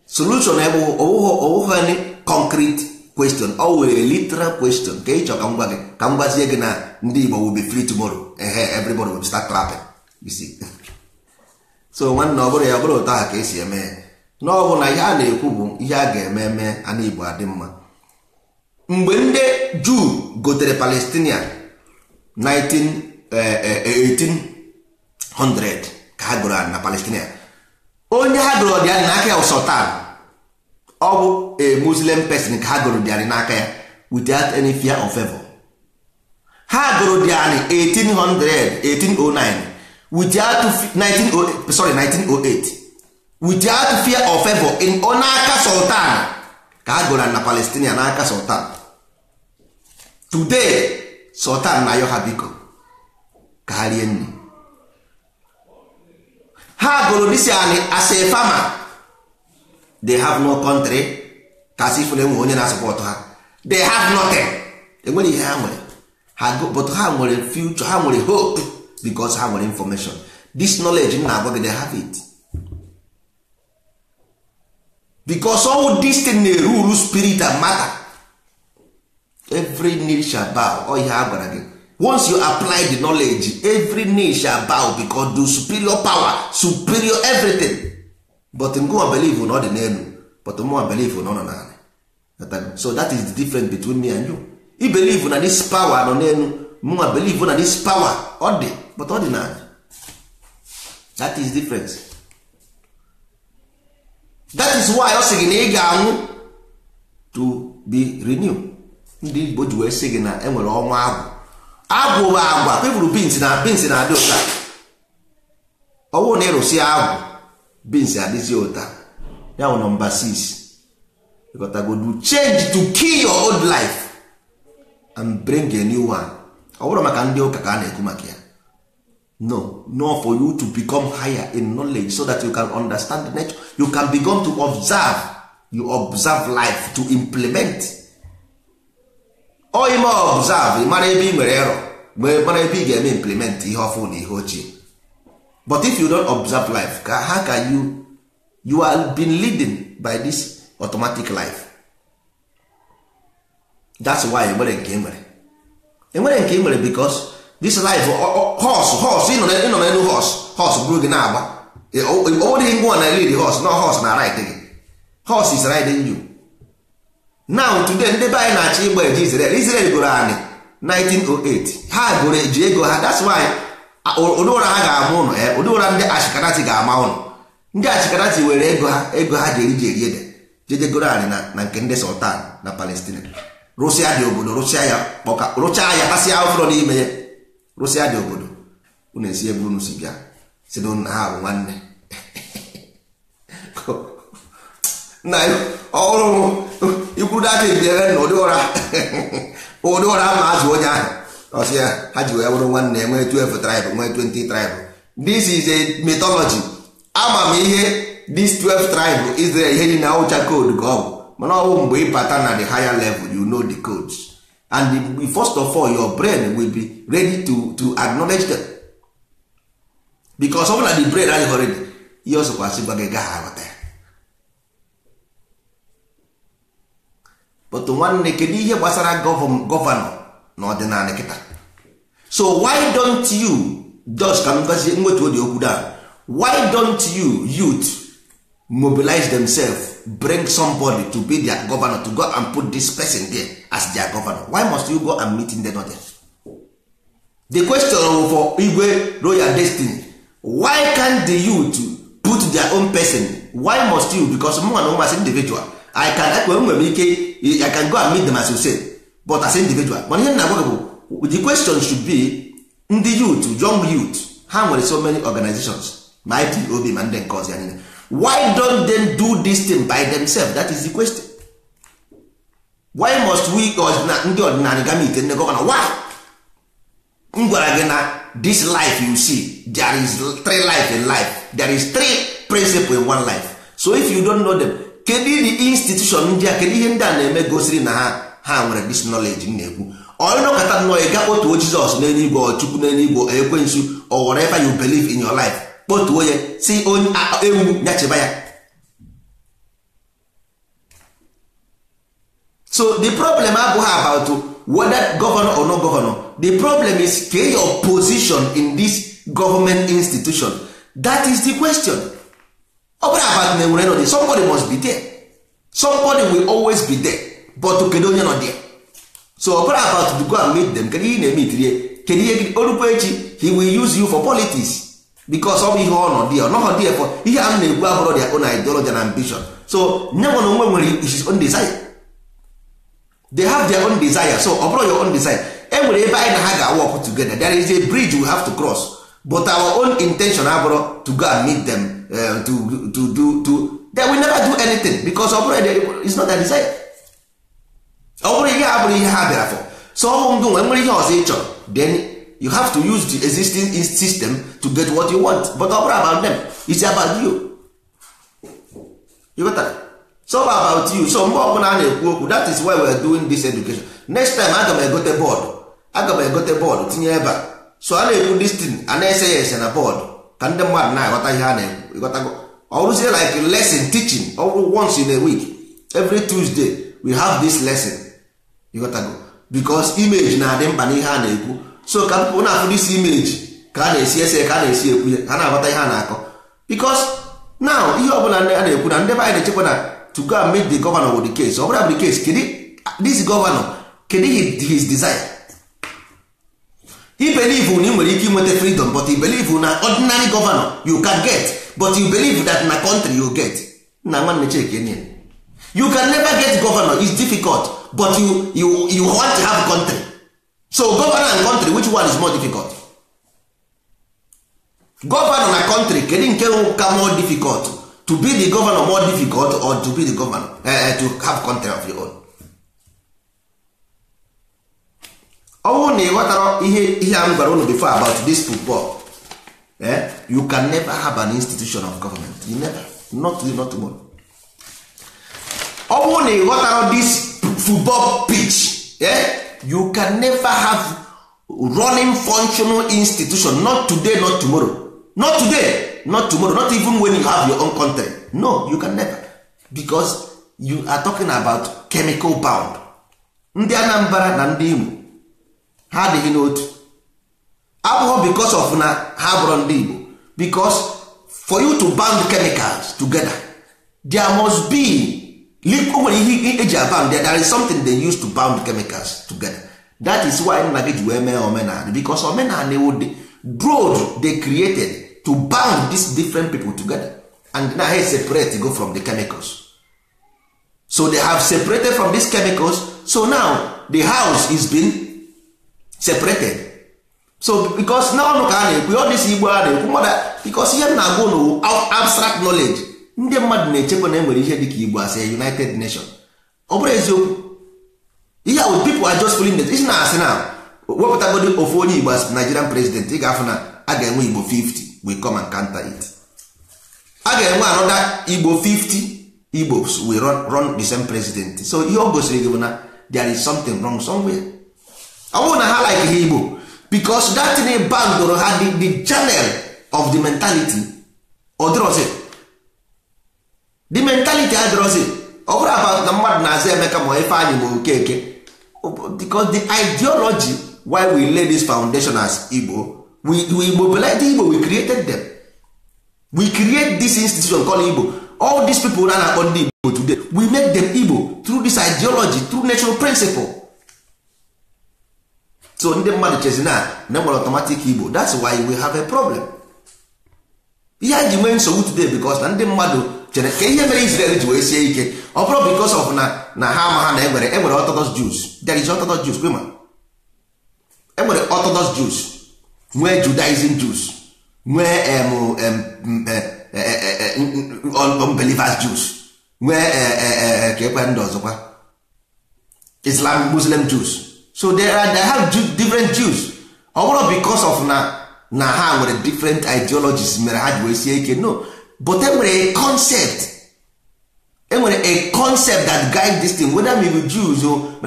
solution ebe ọwụghị concrete kwestion ọ were literal kwestion ka ị chọ ka m gwa gị ka m gwazie gị na ndị Igbo will be free tomorrow ehe everybody will start clapping you so nwanne ọ bụrụ ya ọ bụrụ taa ka esi eme ya n'ọbụ na ihe a na-ekwu bụ ihe a ga-eme eme ana Igbo adị mma mgbe ndị Juu gotere Palestinian 1800 eh, eh, ka onye ha gụrụ ọdịnala na ya ọ bụ a muslim person ka ha gụrụ dịarị n'aka ya without any fear of favor ha gụrụ dịarị 1809 without 1908 sorry 1908 without fear of favor in n'aka sultan ka ha gụrụ na palestinian n'aka sultan today sultan na ayọ ha biko ka ha rie nri ha gụrụ dịsị anị as a farmer they have no country ka sị ifere onye na support ha they have nothing enwere ihe ha nwere ha but ha nwere future ha nwere hope because ha nwere information this knowledge m na-agwa gị they have it because all this thing na rule spirit and matter every nation shall bow ọ ihe a gwara gị once you apply the knowledge every nation shall bow because the superior power superior everything but ngụwa believe na ọ dị n'elu but mụwa believe na ọ nọ n'ala so that is the difference between me and you i believe na this power nọ n'elu mụwa believe na this power ọ dị but ọ dị na that is difference that is why ọ sị gị na ị ga-anwụ to be renew ndị Igbo ji wee sị gị na enwere ọnwa agwụ agwụ bụ agwa pepụrụ bins na bins na adị ụta ọwụ na ịrụsị agwụ bins is ụta ya bụ nọmba 6 go do change to kill your old life and bring a new one ọ bụrụ maka ndị ụka ka a na-ekwu maka ya no no for you to become higher in knowledge so that you can understand the nature you can begin to observe you observe life to implement oime observe mara ebe ị nwere erọ mara ebe ị ga-eme implement ihe ọfụ na ihe ochie but if you don't observe life ka how can you you are been leading by this automatic life that's why enwere nke enwere enwere nke enwere because this life horse horse ịnọ n'elu horse horse bụrụ gị na-agba onweghị ngwa na lead horse no horse na right gị horse is riding you now today ndị be anyị na-achọ ịgba eje Israel Israel gụrụ anyị 1908 ha goro eji ego ha that's why ụdị ụra ha ga-ama ụnụ e, ụdị ụra ndị achịkarati ga-ama ụnụ ndị achịkarati were ego ha ego ha ji eri ede jedegoro anyị na nke ndị sultan na palestina rụsịa dị obodo rụsịa ya kpọka rụchaa ya kasịa ụfọdụ n'ime ya rụsịa dị obodo unu esi ebe unu si bịa si na nna ha bụ nwanne na ọhụrụ ikwuru data ebiere na ụdị ụra ụdị ụra ma azụ onye ahụ ọsị ya ha ji wee bụrụ nwanne ya nwee 12 tribe nwee 20 tribe this is a mythology ama m ihe this 12 tribe Israel ihe dị na awụcha code ka ọ mana ọ mgbe ị bata na the higher level you know the codes and the, first of all your brain will be ready to, to acknowledge them because ọ bụla the brain adịghị ready ihe ọsọkwasị gwa gị gaghị aghọta ya but nwanne kedu ihe gbasara gọvanọ na ọdịnala kịta so why don't you just ka m gwazie nwetu dị okwu da why don't you youth mobilize themselves bring somebody to be their governor to go and put this person there as their governor why must you go and meet in the northern the question for igwe royal destiny why can't the youth put their own person why must you because mụ na ụmasị individual i can ekwe nwere ike i can go and meet them as you say but as individual mana ihe na-agwa gị bụ the question should be ndị youth young youth ha nwere so many organizations ma obi ma ndị nke ọzọ ya why don't they do this thing by themselves that is the question why must we ndị ọdịnala gam ite ndị gọvanọ why m gwara gị na this life you see there is three life in life there is three principle in one life so if you don't know them kedu the institution ndị a kedu ihe ndị a na-eme gosiri na ha ha nwere dis knowledge m na-ekwu onye nọkọta nnọọ ịga ga kpọtuo jizọs n'eluigwe ọchukwu n'eluigwe ekwensu or whatever you believe in your life kpọtuo ya si onye ewu nyacheba ya so the problem abụghị about whether governor or not governor the problem is ke your position in this government institution that is the question ọ bụrụ about na enwere nọ dị, somebody must be there somebody will always be there but kedu onye nọ dị so ọbara about to go and meet them kedu ihe na-eme itirie kedu ihe orukwa echi he will use you for politics because ọ bụ ihe ọ nọ dị ọ nọghọ dị for ihe a na egwu abụrụ dị on ideology ambition so nye nwa na onwe nwere his own desire they have their own desire so ọ bụrụ your own desire e nwere ebe anyị na ha ga-work together there is a bridge we have to cross but our own intention abụrụ to go and meet them uh, to, to, to, to, to will never do anything because ọ bụrụ is not their desire ọ bụrụ ihe a bụrụ ihe ha bịara fọ so ọmụ ngụ nwere nwere ihe ọzọ ị chọrọ then you have to use the existing system to get what you want but ọ bụrụ about them it's about you you got that so about you so mgbe ọbụla a na-ekwu okwu that is why we are doing this education next time aga m egote bọọdụ aga m egote bọọdụ tinye ebe a so a na-ekwu this thing a na-ese ya ese na bọọdụ ka ndị mmadụ na-aghọta ihe a na-ekwu ịghọtago ọ rụzie like lesson teaching ọ once in a week every Tuesday we have this lesson ịghọtago bikos imeji na-adị mkpa n'ihe a na-ekwu so ka mpụ na-afụrụ isi imeji ka a na-esi ese ka a na-esi ekwu ya ha na-aghọta ihe a na-akọ bikos now ihe ọbụla a na-ekwu na ndị be anyị na-echekwa na to go and meet the governor with the case ọ bụla bụ the case kedu this governor kedu his design he believe na ị nwere ike inweta freedom but he believe na ordinary governor you can get but you believe that na country you get na nwanne cheke you can never get governor is difficult but you, you, you want to have country so governor and country which one is more difficult governor na country kedu nke ka more difficult to be the governor more difficult or to be the governor uh, to have country of your own ọnwụ na ịghọtara ihe ihe m gwara unu before about this football eh? you can never have an institution of government you never not not tomorrow ọnwụ na ịghọtara this football pitch eh? you can never have running functional institution not today not tomorrow not today not tomorrow not even when you have your own country no you can never because you are talking about chemical bound ndị Anambra na ndị Igbo ha adịghị n'otu abụghọ because of na ha bụrụ ndị Igbo because for you to bound chemicals together there must be o nwere ihe eji abound there is something they use to bound chemicals together that is why nna gị ji wee mee omenala bicos omenala ewu the broad they created to bound these different people together and na ha separate go from the chemicals so they have separated from these chemicals so now the house is being separated so because na ọnụ ka a na-ekwu all dịsi igbo a na-ekwu mother bicos ihe m na-agwa ụnụ abstract knowledge ndị mmadụ na-echekwa na enwere ihe dị ka igbo asị united nation ọ bụrụ eziokwu ihe ahụ people are just filling isi na-asị na wepụta wepụtagodi ofu onye igbo asị nigerian president ị ga-afụ na a ga-enwe igbo 50 we come and counter it a ga-enwe anọda igbo 50 igbo we run, run the same president so ihe ọ gosiri gị bụ na there is something wrong somewhere ọ bụrụ na ha like ha igbo because that thing bandoro ha the, the channel of the mentality ọ dịrọzi the mentality draw ọ bụrụ about na mmadụ na-azụ emeka ma ife anyị ma okeke because the ideology why we lay this foundation as Igbo we we mobilize Igbo we created them we create this institution called Igbo all these people na na-akpọ ndị Igbo today we make them Igbo through this ideology through natural principle so ndị mmadụ chezi na na e nwere automatic Igbo that's why we have a problem ihe anyị ji nwee nsogbu today because na ndị mmadụ chere ka ihe mere Israel ji wee sie ike ọ bụrụ because of na na ha ama ha na enwere enwere eh, Orthodox Jews there is Orthodox Jews kwema enwere eh, Orthodox Jews nwee Judaism Jews eh, nwee unbelievers Jews nwee ka ekwe ndị ọzọkwa Islam Muslim Jews so there are they have different Jews ọ oh, bụrụ because of na na ha nwere different ideologies mere ha ji wee sie ike no but enwere a concept enwere a concept that guide this thing whether we be Jews o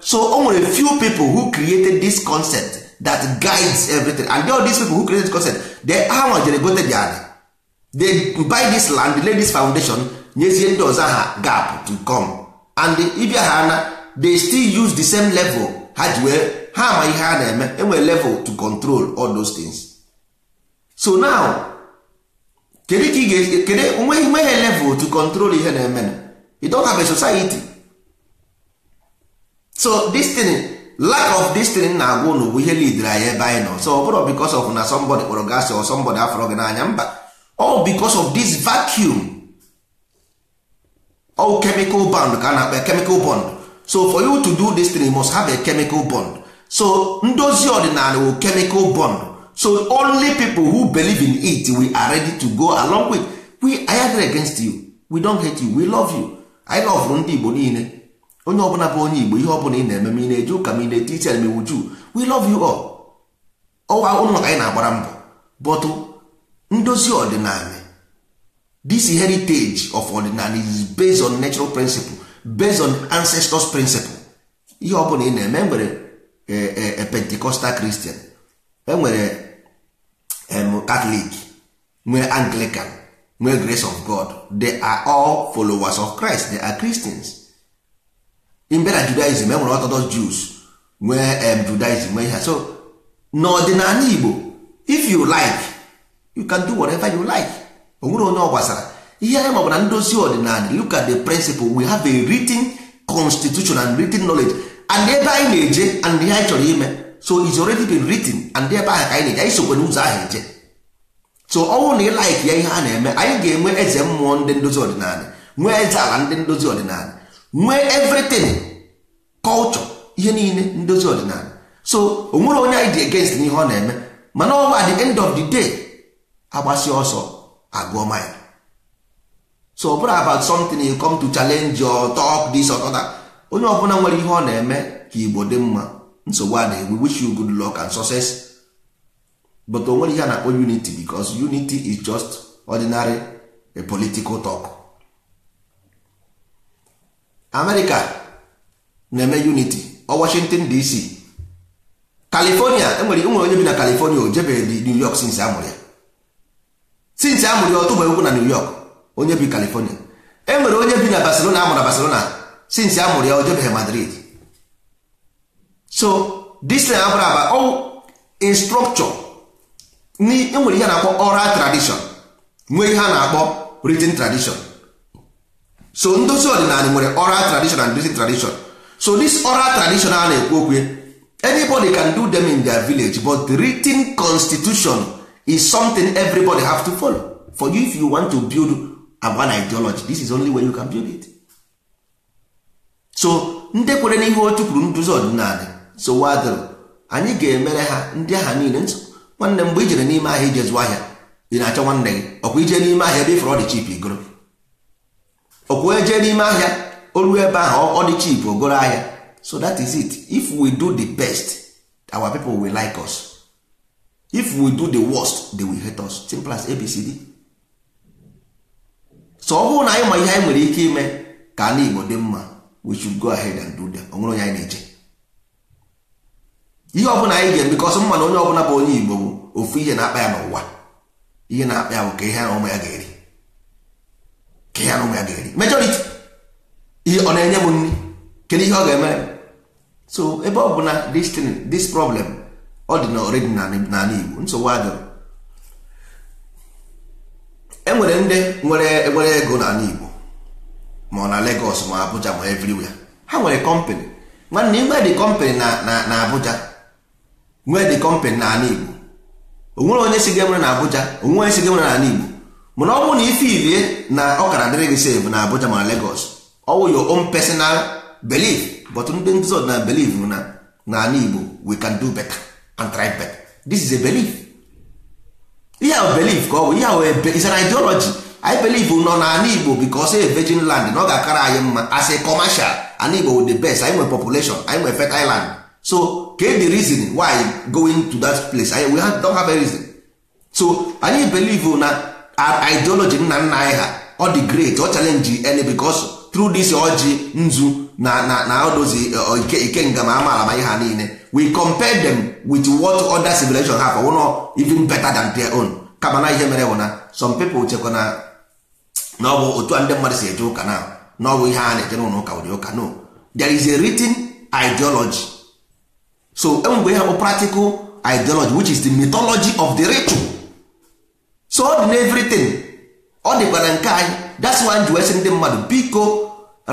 so o nwere few people who created this concept that guides everything and all these people who created this concept they hawa jere gote the they buy this land lay this foundation nyezie ndị ọzọ ha gap to come and ịbịa ha na they still use the same level ha ji wee ha ihe ha na-eme enwere level to control all those things so now kedu ka ị ga-esi kedu nweghị level to control ihe na-eme na have a society so this lack of this na-agwa unu bụ ihe lidere anyị ebe anyị nọ so ọ bụrụ because of na somebody kpọrọ gị or somebody afọrọ gị n'anya mba all because of this vacuum all chemical bond ka a na-akpa chemical bond so for you to do this you must have a chemical bond so ndozi ọdịnala wo chemical bond so only people who believe in it we are ready to go along with we are against you we don't hate you we love you anyị lọvụrụ ndị Igbo niile onye ọbụla bụ onye Igbo ihe ọbụla ị na-eme ma ị na-eje ụka m ị na eti iche ma iwu juu we love you all ọwa ụlọ na-agbara mbọ bọtụ ndozi ọdịnala this heritage of ọdịnala is based on natural principle based on ancestors principle ihe ọbụla ị na-eme enwere a e, e, e, Pentecostal Christian enwere Um, Catholic nwee Anglican nwee Grace of God they are all followers of Christ they are Christians in na Judaism enwere Orthodox Jews nwee um, Judaism nwee ihe so n'ọdịnala Igbo if you like you can do whatever you like o onye ọ gbasara ihe anyị maọbụ na ndozi ọdịnala look at the principle we have a written constitution and written knowledge and ebe anyị na-eje and ihe anyị chọrọ ime so it's already been written and ebe ahụ ka anyị na-eje anyị sokwe n'ụzọ ahụ eje so ọnwụ na ịlaik ya ihe a na-eme anyị ga-enwe eze mmụọ ndị ndozi ọdịnala nwee eze ala ndị ndozi ọdịnala nwee everything culture ihe niile ndozi ọdịnala so o nwere onye anyị dị against ihe ọ na-eme mana ọ bụ at end of the day agbasi ọsọ agụọ mile so ọ bụrụ about something you come to challenge or talk this or that onye ọbụla nwere ihe ọ na-eme ka Igbo dị mma nsogbu a we wish you good luck and success but onwere ihe a na-akpọ unity because unity is just ordinary a political talk America na-eme unity ọ Washington DC California enwere e nwere onye bi na California o jebe New York since amụrụ ya since amụrụ ya ọtụgbe okwu na New York onye bi California enwere onye bi na Barcelona amụrụ na Barcelona since amụrụ ya o jebeghị Madrid so this na abụrụ aba ọ instructure enwere ihe na-akpọ oral tradition nwee ihe a na-akpọ written tradition so ndozi ọdịnala nwere oral tradition and written tradition so this oral tradition a na-ekwu okwu anybody can do them in their village but the written constitution is something everybody have to follow for you if you want to build an ideology this is only way you can build it so ndị kwere n'ihe otu chụpụrụ nduzi ọdịnala sowadoro anyị ga-emere ha ndị aha niile nso nwanne mgbe ijere n'ime ahịa ije zụọ ahịa ị na-achọ nwanne gị ọkwa ije n'ime ahịa ebe ifere dị chip igoro ọkwa eje n'ime ahịa o ebe ahụ ọ dị chip ogoro ahịa so that is it if we do the best our people will like us if we do the worst they will hate us simple as abcd so ọ bụrụ na anyị ma ihe anyị nwere ike ime ka ala igbo dị mma we should go ahead and do them onwere onye anyị na-eche ihe ọbụla anyị ga-eme bikọsọ mma na onye ọbụla bụ onye Igbo bụ ofu ihe na-akpa ya n'ụwa ihe na-akpa ya bụ ka ihe na ụmụ ya ga-eri ka ihe na ụmụ ya ga-eri majority ihe ọ na-enye m nri kedu ihe ọ ga-eme so ebe ọ bụ na this problem ọ dị na oredi n'ala Igbo nsogbu adịrị enwere ndị nwere nwere ego n'ala Igbo ma ọ na Lagos ma Abuja ma everywhere ha nwere kọmpanị nwanne igbe dị kọmpanị na Abuja nwee dị kọmpanị na Igbo onwere onye si ga na Abuja onwere onye si ga na n'ala Igbo mana ọ bụrụ na ife irie na ọkara dịrị gị na Abuja ma Lagos ọ wụ your own personal belief but ndị ndị ọdịnala belief na n'ala Igbo we can do better and try better this is a belief ihe a belief ka ọ bụ ihe ebe is an ideology I believe nọ n'ala Igbo because say e virgin land na ọ ga-akara anyị mma as a commercial ala Igbo with the best anyị nwere population anyị nwere fertile so okay the reason why going to that place I, we have, don't have a reason so anyị believe na our ideology nna nna anyị ha ọ dị great ọ challenge any because through this ji nzu na na na odozi eh, eh, ike ike nga amaala ma ihe ha niile we compare them with what other civilization have wụnọ even better than their own kama na ihe mere bụ na some people chekwa na na ọ bụ otu a ndị mmadụ si eje ụka na na ọ bụ ihe a na-eje n'ụlọ ụka ụdị ụka no there is a written ideology so enwegbe ihe bụ practical ideology which is the mythology of the ritual so ọ dị n'everything ọ dịkwa na nke anyị that's why ji wee ndị mmadụ biko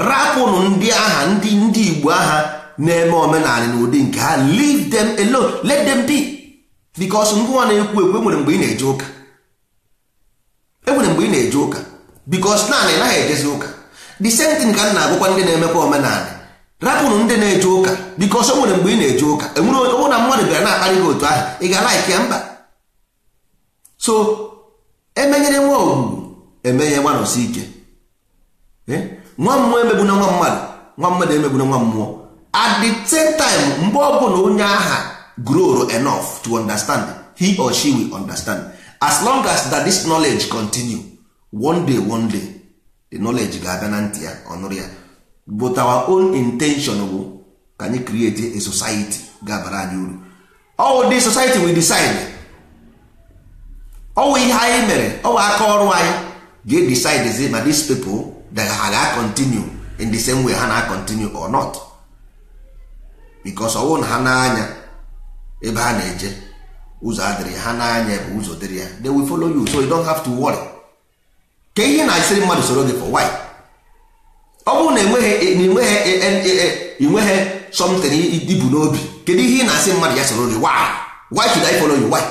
rapụnụ ndị agha ndị ndị igbo agha na-eme omenala na ụdị nke ha leave them alone let them be because ngwa na-ekwu ekwu enwere mgbe ị na-eje ụka enwere mgbe ị na-eje ụka because naanị naghị ejezi ụka the same thing ka m na agwụkwa ndị na-emekwa omenala rapụrụ ndị na-eje ụka biko ọsọ nwere mgbe ị na-eje ụka enwere onye na mmadụ bịara na-akparị gị otu ahụ ị ga-ala ike mba so emenyere nwa ogwugwu emenye nwa nọsi ike eh? nwa mmụọ na nwa mmadụ nwa mmadụ na nwa mmụọ at the same time mgbe ọ bụla onye aha grow enough to understand he or she will understand as long as that this knowledge continue one day one day the knowledge ga-abịa na ntị ya ọ nụrụ ya but our own intention bụ ka anyị create a society ga-abara anyị uru ọwụ dị society we decide ọwụ ihe anyị mere ọwụ aka ọrụ anyị ga-edecide ma these people that ha ga-continue in the same way ha na-continue or not because ọwụ na ha na-anya ebe ha na-eje ụzọ adịrị ha na-anya ebe ụzọ dịrị ya they will follow you so you don't have to worry ka ihe na-esiri mmadụ soro gị for why ọ bụrụ na enweghị e, nweghị e, e, something ibu n'obi kedu ihe ị na-asị mmadụ ya soro why why should I follow you why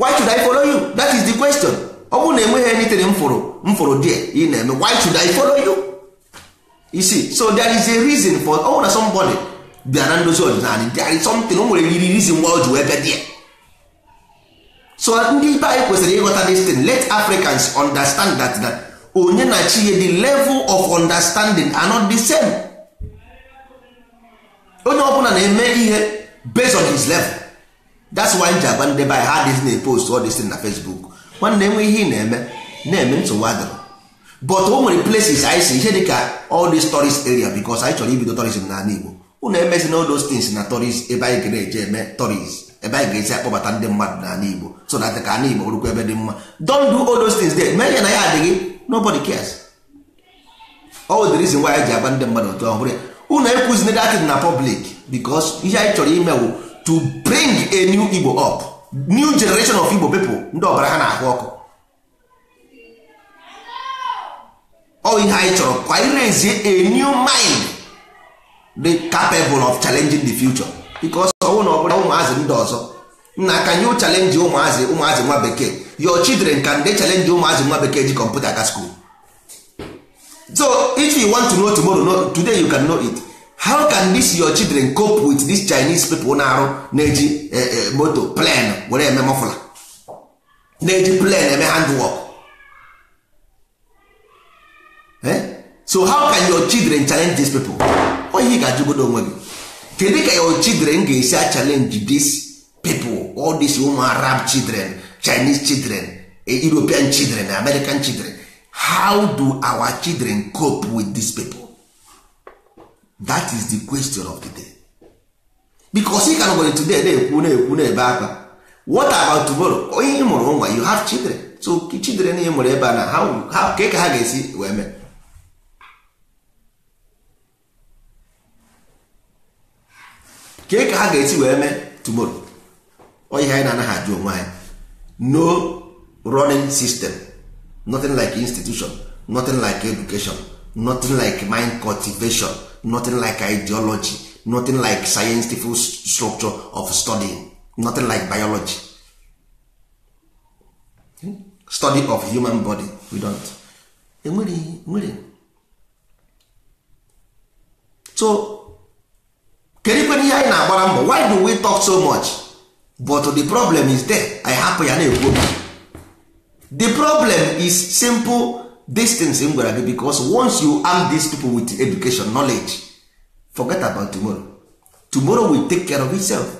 why should I follow you that is the question ọ bụrụ na enweghị anything m fụrụ m ị na-eme why should I follow you you see so there is a reason for ọ bụrụ na somebody bịa na ndozi ọdịnala there is something o nwere yiri reason why o ji wee so ndị be anyị kwesịrị ịghọta this late let Africans understand that that onye na chi ya the level of understanding are not the same onye ọbụla na-eme ihe based on his level that's why nji agba ndị be anyị na post all this thing na Facebook nwanne enwe ihe ị na-eme na-eme nsogbu adịrọ but o nwere places anyị si ihe dịka all these tourist area because anyị chọrọ ibido tourism n'ala Igbo unu emezi na all those things na tourist ebe anyị ga-eje eme tourist ebe anyị ga-esi akpọbata ndị mmadụ na Igbo so na ka ala Igbo ebe dị mma don do all those things there mee ya na ya adịghị nobody cares all the reason why anyị ji agba ndị mmadụ otu ọhụrụ ya unu ekwuzina datin na public because ihe anyị chọrọ ime bụ to bring a new igbo up new generation of igbo people ndị ọbara ha na-ahụ ọkụ ọ ihe anyị chọrọ kwa irezie a new mind the capable of challenging the future because ọnwụ na ọbụla ụmụazị ndị ọzọ na can you challenge ụmụazị ụmụazị nwa bekee your children can they challenge ụmụazị nwa bekee ji kọmputa ka school so if you want to know tomorrow no, today you can know it how can this your children cope with this chinese people na-arụ na-eji eh, eh, moto plan were eme mọfụla na-eji plan eme handwork eh? so how can your children challenge these people onye ị ga-ajụgodo onwe gị kedu ka your children ga-esi a challenge this people all these woman arab children chinese children eh, european children eh, american children how do our children cope with these people that is the question of the day because ị ka nwere today na-ekwu na-ekwu na-ebe akwa what about tomorrow onye ị mụrụ nwa you have children so children ị mụrụ ebe a na how ka ha ga-esi wee mee ka ka ha ga-esi wee mee tomorrow ihe anyị na-anaghị ajụ onwe anyị no running system nothing like institution nothing like education nothing like mind cultivation nothing like ideology nothing like scientific structure of studying nothing like biology hmm? study of human body we don't eh, so kedụ ihe anyị na-agbara mbọ why do we talk so much but the problem is there i hapụ ya na-ekwu obi the problem is simple distance m gwara gị because once you arm these people with education knowledge forget about tomorrow tomorrow will take care of itself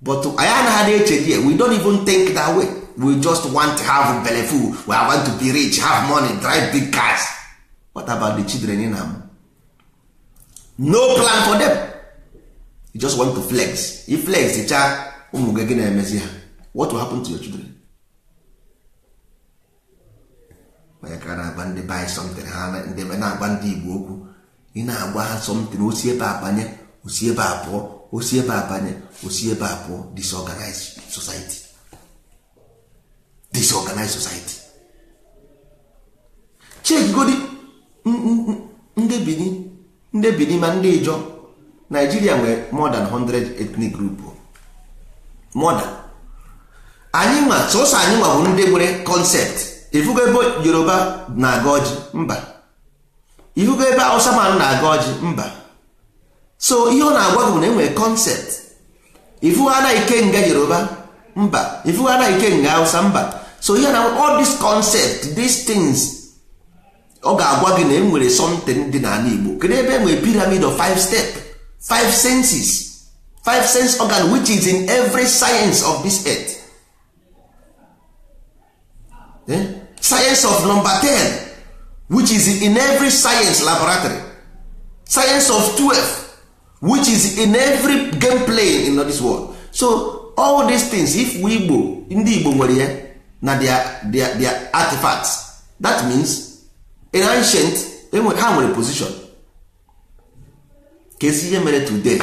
but anyị anaghị na-eche we don't even think that way we just want to have belle full we want to be rich have money drive big cars what about the children in am no plan for them you just want to flex if flex cha ụmụ gị gị na-emezi ha what will happen to your children onye ka na-agba ndị buy something ha ndị na-agba ndị igbo okwu ị na-agba ha something osi ebe abanye osi ebe abụọ osi ebe abanye osi ebe abụọ disorganized society disorganized society chekgodi ndị benin ndị ma ndị ịjọ naijiria nwere more than 100 ethnic group more anyị nwa sọsọ anyị nwa bụ ndị nwere concept ifugo ebe Yoruba na-aga ọjị mba ifugo ebe Hausa man na-aga ọjị mba so ihe ọ na-agwa gị bụ na e enwere concept ifugo anaghị kenga Yoruba mba ifugo anaghị kenga Hausa mba so ihe na all these concept these things ọ ga-agwa gị na e enwere something dị n'ala Igbo kedu ebe e enwere piramid of five step five senses five sense organ which is in every science of this earth eh? science of number ten which is in every science laboratory science of twelve which is in every game playing in this world so all these things if we igbo ndị igbo nwere ya na their, their artifacts that means in ancient ha nwere position kezi ihe mere today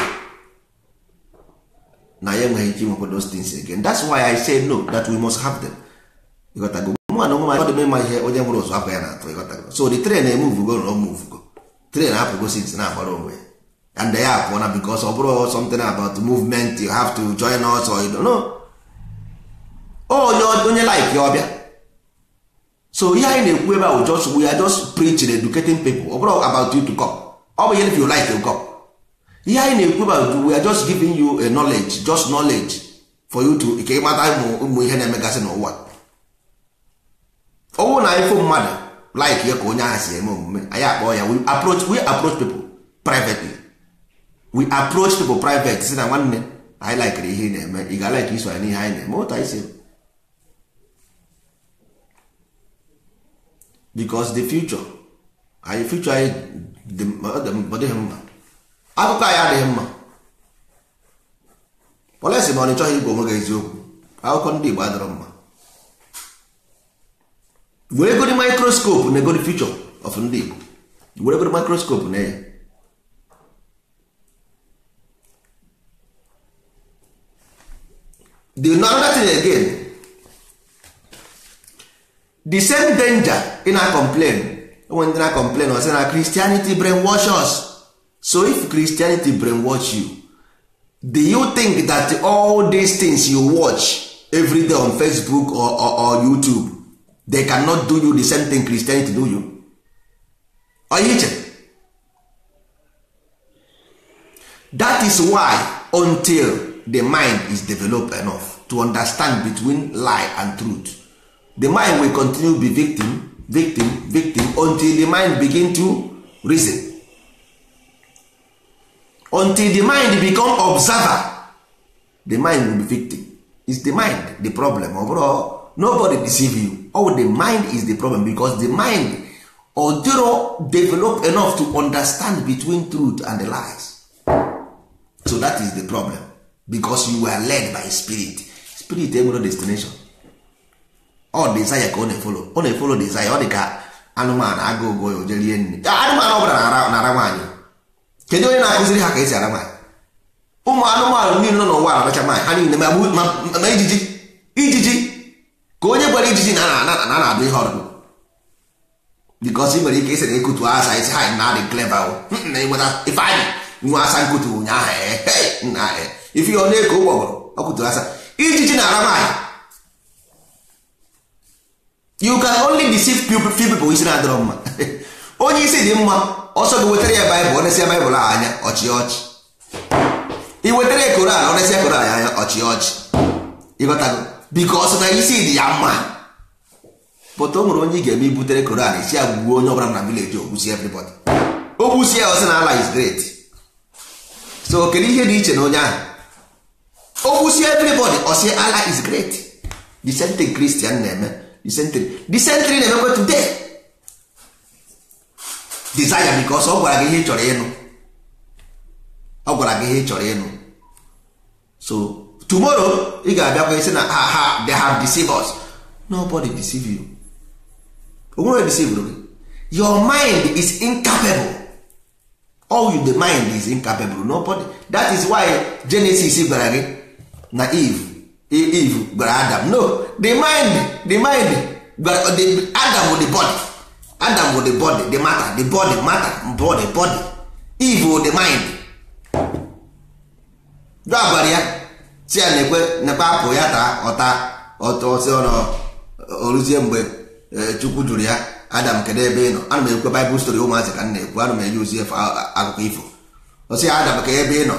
na ya enweghị ike inwekwa those things again that's why i say no that we must have them ịghọtago mụ na onwe m ọ dị mma ihe onye nwere ụzụ afọ ya na-atụ ịghọtago so the train emuvugo eh, na omuvugo train apụgo sins na-agbara onwe ya and ya apụọ na bikos ọ bụrụ something about movement you have to join us or you don't know oh, onye onye like ya ọbịa so ihe anyị na-ekwu ebe just we are just preaching educating people ọ oh, bụrụ about you to come ọ bụ ihe if you like you come ihe anyị na-ekwu about we are just giving you a knowledge just knowledge for you to ka ịmata ụmụ ihe na-emegasị n'ụwa ọnwụ na anyịfụ mmadụ like ya ka onye ahụ si eme omume anyị akpọ ya we approach we approach people privately we approach people private si na nwanne anyị likere ihe na-eme ị ga like iso ya n'ihe anyị na-eme otu anyị si because the future anyị future anyị ọ mma akụkọ anyị adịghị mma polesi ma ọ na ịchọghị igwe onwe gị eziokwu akụkọ ndị Igbo adịrọ mma were egodi mikroskopu na egodi fichọ of ndị Igbo were egodi mikroskopu na ya the another thing again the same danger ị na complain enwe ndị na complain ọ sị na Christianity brain wash us so if christianity brainwash you do you think that all these things you watch every day on facebook or, or, or youtube they cannot do you the same thing christianity do you you? that is why until the mind is developed enough to understand between lie and truth the mind will continue to be victim victim victim until the mind begin to reason until the mind become observer the mind will be victim is the mind the problem overall nobody deceive you oh the mind is the problem because the mind odoro develop enough to understand between truth and the lies so that is the problem because you were led by spirit spirit enwere destination all desire ka ọ na-efolo ọ na-efolo desire ọ dị ka anụmanụ agụụ go ya o jerie nri ah, anụmanụ ọ bụla na-ara nwaanyị kedu onye na-akụziri ha ka esi ara maanyị ụmụ anụmanụ niile nọ n'ụwa aracha maanyị ha niile ma ijiji ijiji ka onye gwara ijiji na na na-adụ ihe ọdụ bikos ị nwere ike isi na ekutu asa isi ha na adị cleva na enweta ife anyị nwe asa nkutu ụnyaahụ eh, eh, na eh. ife ọ na-eko ụgbọgụrụ ọkụtu asa ijiji na ara maanyị you can only deceive few people isi na-adịrọ mma onye isi dị mma ọsọ gị wetara ya baịbụl onesịa baịbụl anya ọchị ọchị ị wetara ya koran onesịa koran anya ọchị ọchị ịghọtago biko ọsọ na isi dị ya mma pụta o onye ị ga-eme ibutere koran isi ya gbuo onye ọbụla na vileji ogbusi everybody ogbusi ya ọsị na ala is great so kedu ihe dị iche na onye ahụ ogbusi everybody ọsị ala is great disentry kristian na-eme disentry disentry na-emekwa today desire because ọ gwara gị ihe chọrọ ịnụ ọ gwara gị ihe chọrọ ịnụ so tomorrow ị ga-abịakwa isi na ha ha they have deceived us nobody deceive you onwere deceive gị your mind is incapable all you the mind is incapable nobody that is why Genesis gwara gị na Eve Eve gwara Adam no the mind the mind gwara Adam the body adam wụ the body the matter the body matter body body eve wụ the mind do abalị ya si ya na-ekwe nekwe apụ ya taa ọta ọtọsi ọnọ oruzie mgbe chukwu jụrụ ya adam kedu ebe ị nọ ana m ekwe baịbụl stori ụmụazị ka na-ekwu ana m enye ozi akụkọ ifo ọsị ya adam ka ebe ị nọ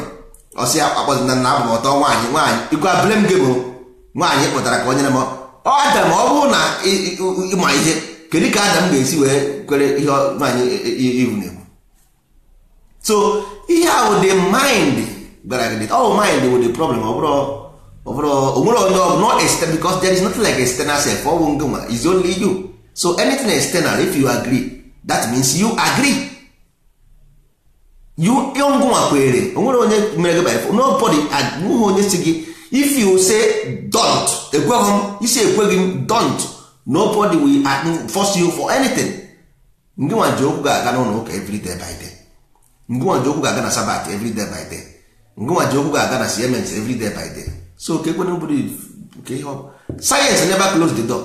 ọsị ya akpọzi na nna abụ m ọtọ nwaanyị nwaanyị ikwe abụle gị bụ nwaanyị kpụtara ka o nyere m ọ adam ọ bụrụ na ịma ihe kedu ka adam ga-esi wee kwere ihe nwaanyị e- e- iwu na-ekwu so ihe ahụ dị mind gwara gị ọ oh, mind wụ the problem ọ bụrụ onwere onye ọ not external because there is nothing like external self ọ bụ is only you so anything external if you agree that means you agree you ngụnwa kwere onwere onye mere gị by nobody nweghị onye si gị if you say don't ekweghị m isi ekweghị m don't nobody will uh, force you for anything ndị nwa okwu ga-aga n'ụlọ ụka every day by day ndị nwa okwu ga-aga na sabat every day by day ndị nwa okwu ga-aga na siemens everyday day by day so ka ekwena obodo ka ihe science never close the door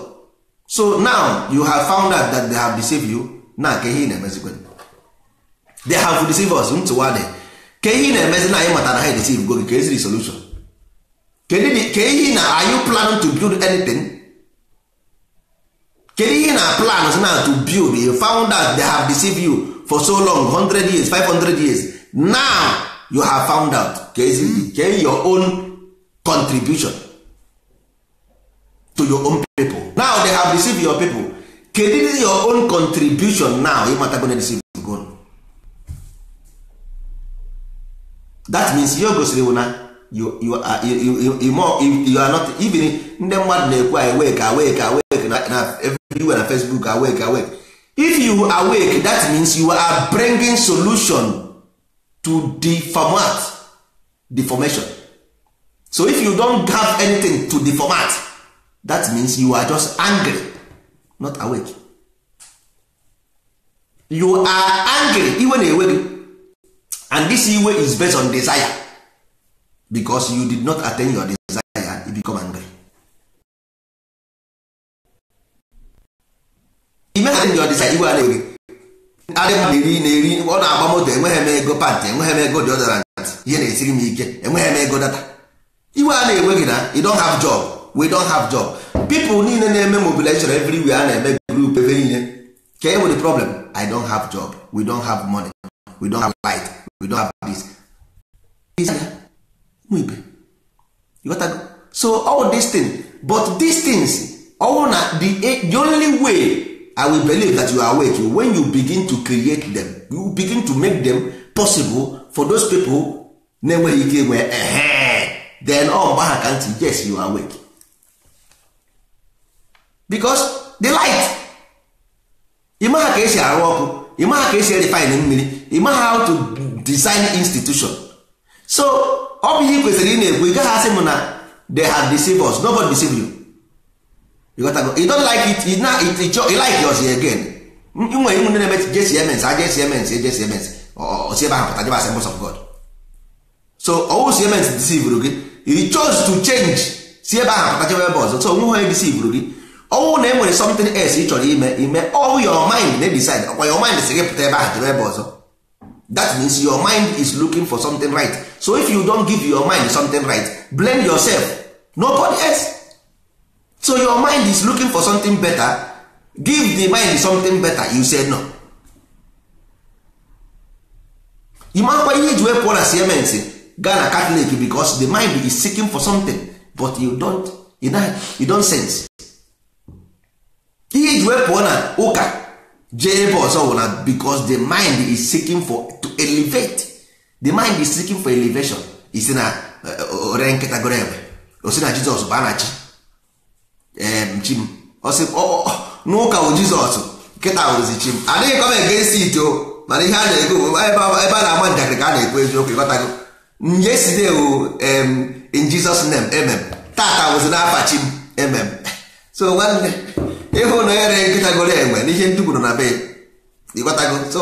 so now you have found out that they have deceived you na ka ihe ị na-emezikwa they have deceived us ntụwa dị ka ihe ị na-emezi na anyị matara ha edesive go gị ka eziri solution kedụ ka ihe na are you planning to build anything kedu ihe na plan na to build a founder they have deceived you for so long 100 years 500 years now you have found out ke your own contribution to your own people now they have deceived your people kedu your own contribution now ịmatago na deceive go that means you gosiri na you, you, are, you, you, you, you, are not even ndị mmadụ na-ekwu anyị wee ka wee ka na everywhere na facebook awake awake if you awake that means you are bringing solution to the deformation. so if you don't have anything to the that means you are just angry not awake you are angry iwe na-ewe gị and this iwe is based on desire because you did not attain your desire you become angry imagine your design iwe a na-eri adị mmadụ iri na-eri ọ na-agba moto enweghị m ego pant enweghị m ego deodorant ihe na-esiri m ike enweghị m ego data iwe a na-enwe na you don't have job we don't have job people niile na-eme mobilization everywhere a na-eme group ebe niile ka e nwere problem i don't have job we don't have money we don't have light we don't have this so all these things but these things ọwụ na the only way i will believe that you are awake when you begin to create them you begin to make them possible for those people na-enweghị ike enwe ehe then ọ oh, gbagha ka ntị yes you are awake because the light ịmaha ka esi arụ ọkụ ịmaha ka esi refine mmiri ịmaha how to design institution so ọ bụ ihe kwesịrị ị na-ekwu ị gaghị asị m na they have deceived us nobody deceived you you got to go you don't like it you na it you like yours again nwere ụmụ ndị na-eme jcms aja jcms jcms osi ebe ahụ pụta jebe assembles of god so ọwụ cms disivuru gị you chose to change si ebe ahụ pụta jebe ebe ọzọ so onwe onye disivuru gị ọnwụ na e nwere something else ị chọrọ ime ime all your mind na decide ọkwa your mind si gị pụta ebe ahụ jebe ebe ọzọ that means your mind is looking for something right so if you don't give your mind something right blame yourself nobody else so your mind is looking for something better give the mind something better you say no ịmakwa ihe iji wepụ na siemens gaa na catholic because the mind is seeking for something but you don't, you don't, you don't sense ihe iji wepụ na ụka jee ebe ọzọ na because the mind is seeking for to elevate the mind is seeking for elevation isi na eh, eh, eh, ore nkịta goro ebe osi na jizọs bụ anachi chim ehm, n'ụka bụ jizọs nkịta wụrụzi chim adịghị kọma egesi ito mana ihe a na-ego ebe a na-agba njakịrị ka a na-ekwu eziokwu ịghọtago nyeside ewu ehm, in jizọs nem emem tata wụzi n'afa chim emem so nwanne ịhụ na ere nkịtagoro enwe n'ihe ndị na be ịghọtago so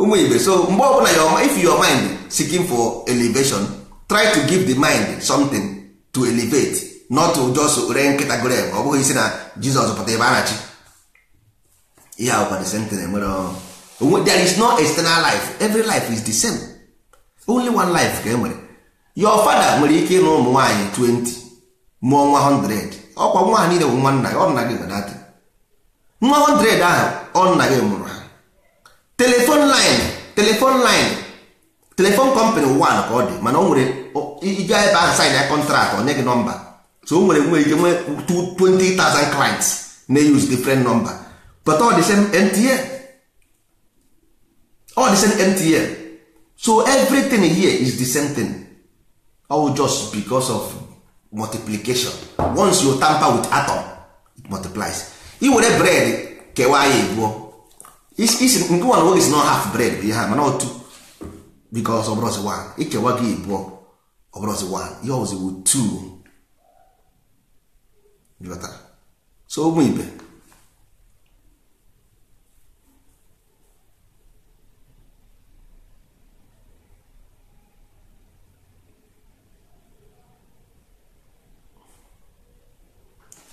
ụmụ igbe so mgbe ọbụla if your mind seeking for elevation try to give the mind something to elevate not just ree nkịta grave ọ bụghị isi na jizọs pụta ebe a na-achị ihe awụkwa the same thing enwere there is no external life every life is the same only one life ka e nwere your father nwere ike ịnụ ụmụ nwaanyị 20 mụọ nwa 100 ọkwa nwa ha niile bụ nwa nna gị ọ nna gị gbanatị nwa 100 ahụ ọ nna gị mụrụ ha telefon line telefon line telefon company one ka ọ dị mana o nwere ije ebe ahụ sign ya kọntraktị onye gị nọmba so o nwere nwere ike nwee 20,000 clients na-use different number but all the same NTL all the same NTL so everything here is the same thing all just because of multiplication once you tamper with atom it multiplies i were bread kewaa ya ebuo isi nke one nwoge is not half bread bụ ihe a mana otu because ọbụrọzi one ikewa gị ebuo ọbụrọzi one ihe ọzi wu two so ụmụ ibe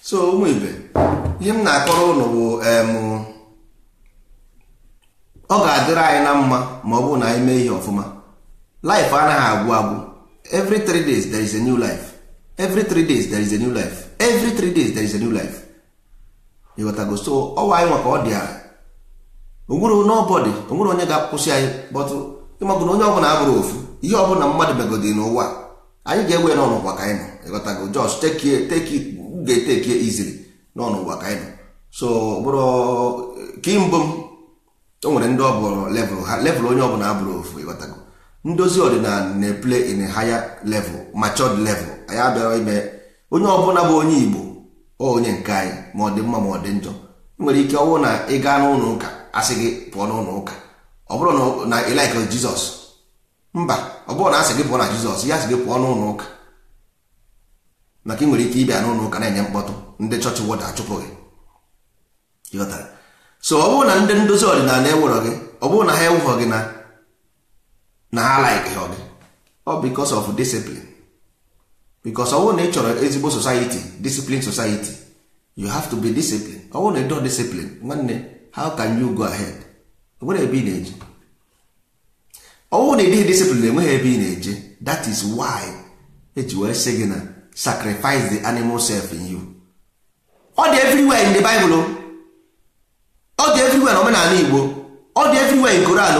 so ụmụ ibe ihe m na-akọrọ ụnụ bụ ọ ga-adịrị anyị na mma ma ọ bụ na anyị mee ihe ọfụma life anaghị agwụ agwụ every 3 days there is a new life every 3 days there is a new life every three days there is a new life ịghọtago so ọwa anyị nwa ka ọ dị ala onwere nobody onwere onye ga-akwụsị anyị bọtụ ịmagụ na onye ọbụla abụrụ ofu ihe ọbụla mmadụ megodị n'ụwa anyị ga-ewe ya n'ọnụgwa ka anyị nọ ịghọtago just take take ga-etekie izili n'ọnụgwa ka anyị nọ so bụrụ kimbụ m o nwere ndị ọbụrụ level ha level onye ọbụla abụrụ ofu ịghọtago ndozi ọdịnala na-eple in a higher level matured level anyị abịara ime onye ọbụla bụ onye igbo onye nke anyị ma ọ dị mma ma ọ dị njọ nwere ike ọwụ na ị gaa n'ụlọ ụka asị gị pụọ n'ụlọ ụka ọ bụrụ na ịlaikọ jizọs mba ọ bụrụ na asị gị pụọ na jizọs ya asị gị pụọ n'ụlọ ụka maka ị nwere ike ịbịa n'ụlọ ụka na-enye mkpọtụ ndị chọọchị wọda achụpụ gị so ọ bụrụ na ndị ndozi ọdịnala enwerọ gị ọ bụrụ na ha enwehọ gị na ha alaikọ gị ọ bikos of discipline bikos ọ bụrụ na ị chọrọ ezigbo society discipline society you have to be discipline ọ bụrụ na ịdọ discipline nwanne how can you go ahead nwere ebe ị na-eje ọ bụrụ na ịdịghị discipline enweghị ebe ị na-eje that is why eji were sị gị na sacrifice the animal self in you ọ dị everywhere in the Bible ọ dị everywhere na omenala Igbo ọ dị everywhere in Koran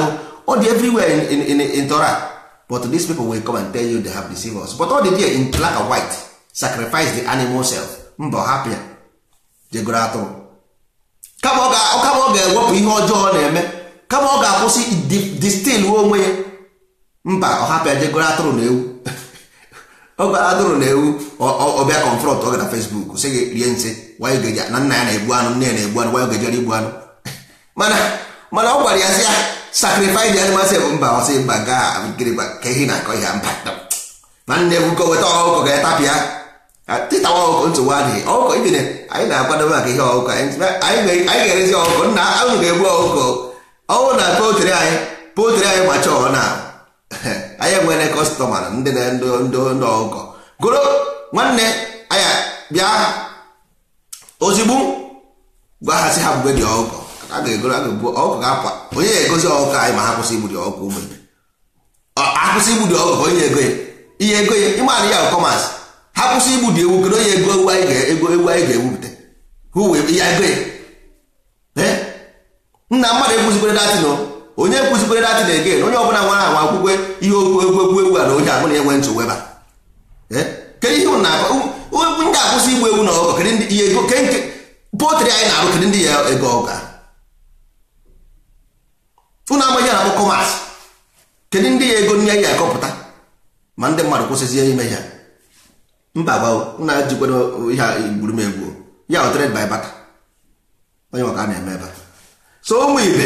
ọ dị everywhere in, in, in, in Torah but these people will come and tell you they have deceived us but all the day in black and white sacrifice the animal self mba hapụ ya jegoro atụrụ kama ọ ga-ewepụ ihe ọjọọ na-eme kama ọ ga-akwụsị distil onwe ya mba ọ hapụ ya jegoro atụrụ na ewu ọ atụrụ na ewu ọbịa confront ọ gara Facebook sị gị rie nsị na nna ya na-egbu anụ nne ya na-egbu anụ wanyị gejere igbu anụ mana ọ gwara ya sị ya sacrifice the animal sef mba ọsị mba ga ka ehi na-akọ ihe mba ma nne bụko weta ọkụkọ ga-etapịa tịtawa ọkụkọ nsogbu adịghị ọkụkọ ibine anyị na-akwadobe maka ihe ọkụkọ anyị ga-erezi ọkụkọ nna ahụ ga-egbu ọkụkọ ọnwụ na potri anyị potri anyị ma chọọ na anyị enwere kọstọma na ndị ndị ọkụkọ goro nwanne anyị bịa ozigbo gwa ha si ha mgbe dị ọkụkọ a ga-egoro ọkụ ga-apụ onye ga-egosi ọkụkọ anyị ma ha kwụsị igbudi dị ụmụ ibe akwụsị igbudi ọkụkọ onye ego ya ihe ego ya ịmanụ ya kọmasị ha kwụsị dị ewu kedu onye ego ewu anyị ga-ego ewu anyị ga-ewupụta ya ego ya nna mmadụ ekwuzikwere datin onye ekwuzikwere na egen onye ọbụla nwara anwa akwụkwọ ihe okwu egwu egwu egwu a na onye abụla enwe ntụ weba kedu ihe ndị akwụsị igbu ewu na ọkụkọ kedu ihe ego potri anyị na-arụ kedu ndị ya ego ọka ụnụ amaghị na bụ kọmas kedu ndị ya ego nye ya akọpụta ma ndị mmadụ kwụsịzie ime ya mba gbaụ na jikwado ihe gburu m egwu ya ọtred by baka onye maka na-eme ebe so ụmụ ibe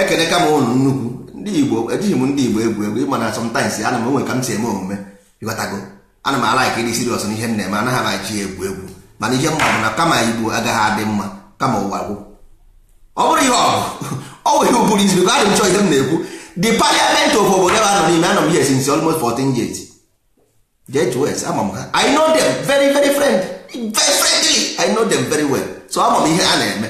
ekene ka m ụnụ nnukwu ndị igbo ejighị m ndị igbo egwu egwu ịma na sometimes ana m onwe ka m si eme omume ịghọtago ana m ala ka ịdị siriọs na ihe m na-eme anaghị amachi egwu egwu mana ihe mma bụ na kama igbo agaghị adị mma kama ụwa gwụ ọ bụrụ ihe ọgụ ihe ụbụrụ izu a na-echọ ihe m na-ekwu the parliament of obodo ebe anọ n'ime anọ m here since almost 14 years jts ama m ha i know them very very friend very friendly i know them very well so ama m ihe a na-eme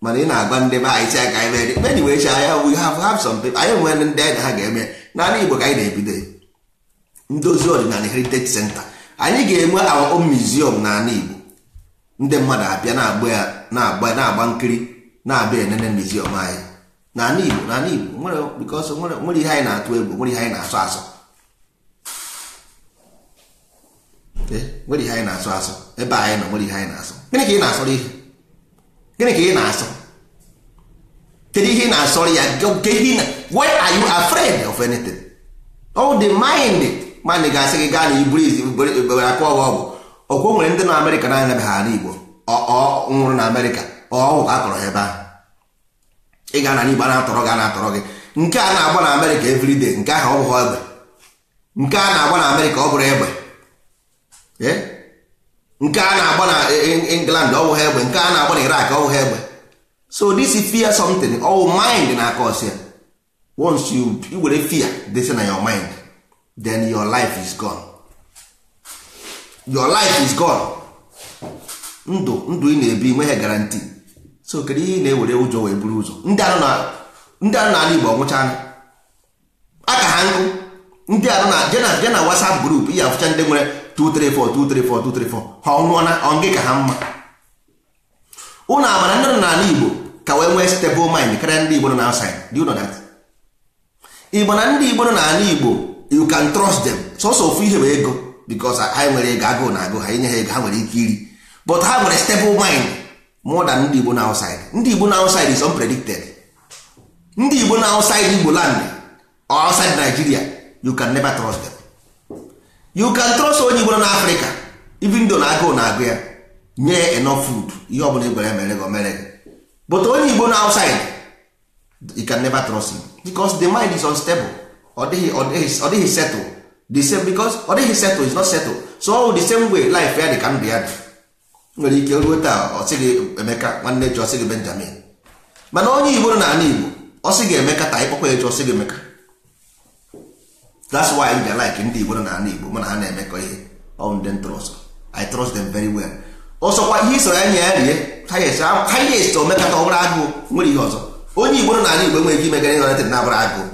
mana ị na-agba ndị be anyị si aka anyị mere many wee chi anya we have have some people anyị nwere ndị anyị ha ga-eme n'ala igbo ka anyị na-ebido ndozi ọdịnala heritage center anyị ga-enwe our own museum n'ala igbo ndị mmadụ abịa na-agba ya na-agba na-agba nkiri na-abịa enene ọma anyị n'ala Igbo n'ala Igbo nwere nwere ihe anyị na-atụ egwu nwere ihe anyị na-asọ asọ nwere ihe anyị na-asọ asọ ebe anyị nọ nwere ihe anyị na-asọ gịnị ka ị na-asọrọ ihe gịnị ka ị na-asọ kedu ihe ị na-asọrọ ya na where are you afraid of anything all the mind mana ị ga-asị gị gaa na iburu izi akụ ọgwụ ọgwụ ọkwa nwere ndị na amerịka na anyabeghị ala igbo nwụrụ na amerịka ọwụ ka a tọrọ ebe ahụ ị ga na igbo a na-atọrọ gị a na-atọrọ gị nke a na-agba na amerịka everyday nke ahụ ọ egbe nke a na-agba na amerịka ọ bụrụ egbe nke a na-agba na england ọgwụ ha egbe nke a na-agba na irak ọ bụghị egbe so this is fear something ọwụ mind na akọsi ya once you were fear dey na your mind then your life is gone. your life is gone ndụ ndụ ị na-ebi nweghị garanti so kedu ihe ị na-ewere ụjọ wee buru ụzọ ndị anụ ala Igbo ọnwụchaala aka ha nkụ ndị anụ na jena jena WhatsApp group ihe afụcha ndị nwere 234 234 234 ha ọnwụọ na ọngị ka ha mma ụnụ amara ndị nọ n'ala Igbo ka wee nwee stable mind karịa ndị Igbo nọ na outside do Igbo na ndị Igbo nọ n'ala Igbo you can trust them sọsọ ofu ihe bụ ego because ha nwere ego agụụ na agụ ha inye ha ego ha nwere ike iri but ha nwere stable mind more than ndị Igbo na outside ndị Igbo na outside is unpredicted ndị Igbo na Igbo land or outside Nigeria you can never trust them you can trust onye Igbo na Africa even though na agụụ na agụ ya nye enough food ihe ọ bụla igwere e mere gị mere gị but onye Igbo na outside you can never trust him because the mind is unstable ọ dịghị ọ dịghị settle the same because ọ dịghị settle is not settle so ọ the same way life ya dị ka ndụ ya dị nwere ike ruo taa ọ gị Emeka nwanne ji ọ sị gị Benjamin mana onye Igbo nọ n'ala Igbo ọ gị Emeka taa ịkpọkwa eji ọ sị gị Emeka that's why I like ndị Igbo nọ n'ala Igbo mana ha na-emekọ ihe on them trust I trust them very well ọsọkwa ihe isoro anya ya rie ha yes omekata ọbụrụ agụụ nwere ihe ọzọ onye Igbo nọ n'ala Igbo enweghị ike imegara ihe ọ na-abụrụ agụụ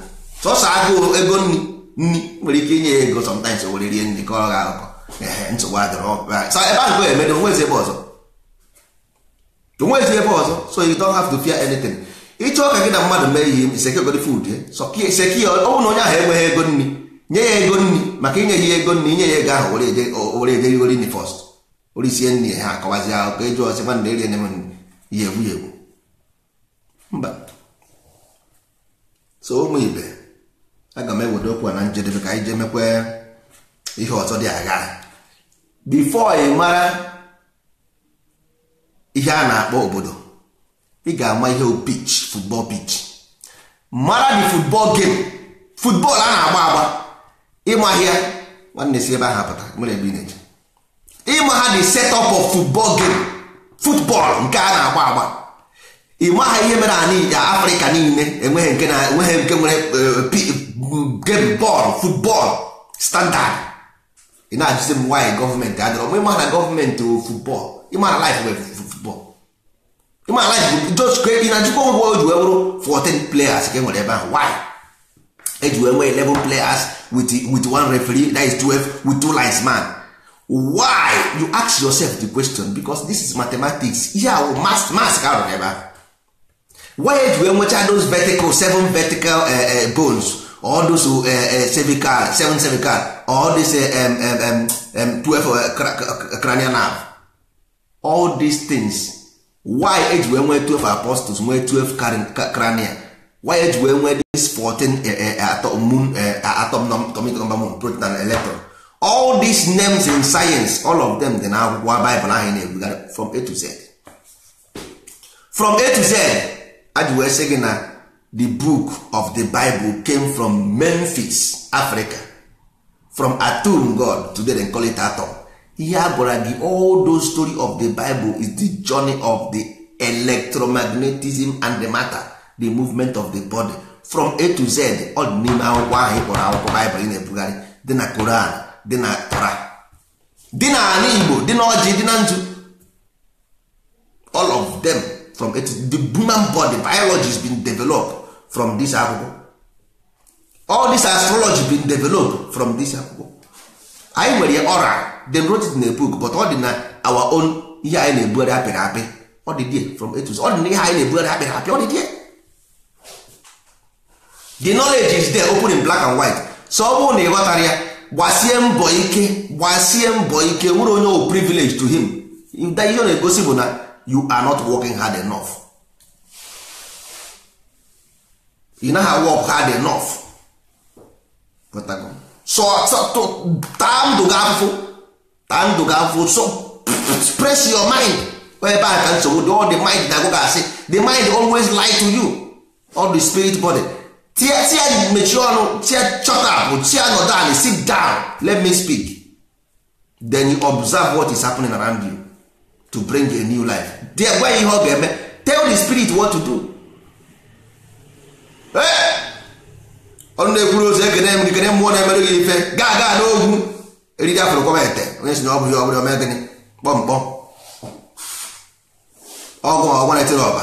sọsọ agụụ ego nri nri nwere ike inye ego sometimes were rie nri ka ọ ga-akọ nsogbu adịrọ so ebe ahụ emedo onwezi ebe ọzọ onwezi ebe ọzọ so you don't have to fear anything ịchọ ka gị na mmadụ mee ihe sekegod food eh? seki ọnwụ na onye ahụ enweghị ego nri nye ya ego nri maka inye ya ego nri inye ya ego ahụ were eje rigori nri first orisie nri ha akọwazi ahụ ka eji ọsị nwanna erie nem ya egwu ya egwu mba so ụmụ ibe aga m ewere okwu na njedebe ka anyị jee mekwa ihe ọzọ dị agha bifo ị mara ihe a na-akpọ obodo ị ga-ama ihe pitch football pitch mara dị football game football a na-agba agba ịmahịa nwanne si ebe ahụ pụta nwere ebe ị na-eje ịma ha dị set up of football game football nke a na-agba agba ịma ihe mere ala afrịka niile enweghị nke nwere eh, game bọọlụ football standard ị na-ajụzi m nwaanyị gọọmenti adịrọ m ịma na gọọmenti wụ football ịma na life wee football ịma na life just ị na-ajụkwa ngwa o wee bụrụ 14 players ka nwere ebe ahụ why eji wee nwee 11 players with, with one referee that is twelve with two linesman why you ask yourself the question because this is mathematics ihe awụ mas mas ka arụrụ ebe ahụ why eji wee nwechaa those vertical seven vertical uh, uh, bones all those cervical eh, eh, seven cervical all eh, twelve cranial all these things why eji wee nwee 12 apostles nwee 12 cranial why eji wee nwee this 14 atom moon number moon proton and electron all these names in science all of them dị na akwụkwọ Bible ahụ na from A to Z from A to Z aji na the book of the bible came from memphis africa from atum god today they call it atom ihe a gị all those story of the bible is the journey of the electromagnetism and the matter the movement of the body from a to z ọ dị n'ime akwụkwọ ahụ ịkpọrọ akwụkwọ baịbụl ị na-ebugharị dị na koran dị na tara dị na ala igbo dị na ọjị dị na nzu all of them from a to the human body biology has been developed from this akwụkwọ all this astrology been developed from this akwụkwọ anyị nwere ọra dem wrote it in a book but ọ dị na our own ihe anyị na-ebugharị apịrị apị ọ dị there from etus ọ dị na ihe anyị na-ebugharị apịrị apị ọ dị there the knowledge is there open in black and white so ọ bụrụ na ị ghọtara ya gbasie mbọ ike gbasie mbọ ike nwere onye o privilege to him ihe ọ na-egosi bụ na you are not working hard enough ị naghị awọk hard enough so taa ndụ gị afụfụ taa ndụ gị afụfụ so press your mind ebe a ka nsogbu dị all the mind na-agụ asị the mind always lie to you all the spirit body tia tia mechie ọnụ tia chọta bụ tia nọdụ anị sit down let me speak then you observe what is happening around you to bring a new life dị gwa ihe ọ ga-eme tell the spirit what to do Eh! ọnụ na-ekwuru ozi ekene m ikene mmụọ na-emere gị ife gaa gaa n'ogwu eriri afụrụ kọba onye si na ọ bụghị ọbụla ome gịnị kpọmkpọ ọgụ ma ọgwa na-etere ọba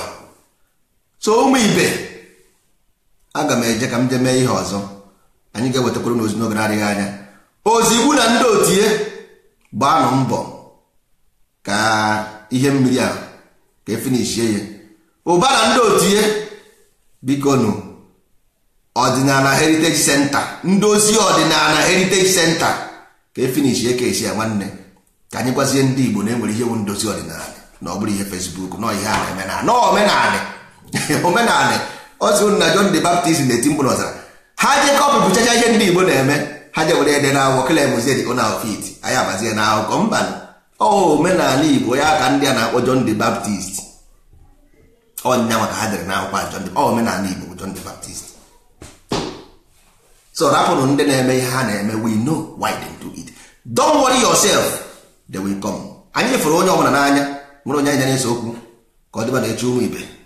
so ụmụ ibe aga m eje ka m jee mee ihe ọzọ anyị ga-ewetakwuru n'ozi n'oge na-adịghị anya ozigbu na ndị otie gbaanụ mbọ ka ihe mmiri a ka efinishie ya ụba na ndị otie biko nụ ọdịnala heritage center ndozi ọdịnala heritage center ka efinish ya ka esi ya nwanne ka anyị gwazie ndị igbo na enwere ihe wu ndozi ọdịnala na ọ bụrụ ihe facebook nọ ihe a na-eme na omenala omenala ozi na john the baptist na-eti mkpụrụ ọzara ha je kọpụpụchacha ihe ndị igbo na-eme ha je were ede na akwụkwọ kele emuzie dị na ofit anyị abazie na akụkọ mba ọ omenala igbo ya ka ndị a na-akpọ john the baptist ọnya maka ha dere na akwụkwọ john omenala igbo john the baptist so rapụrụ ndị na-eme ihe ha na-eme we know why they do it don't worry yourself they will come anyị fụrụ onye ọbụla n'anya nwere onye anyị na-ese okwu ka ọ dịba na-eche ụmụ ibe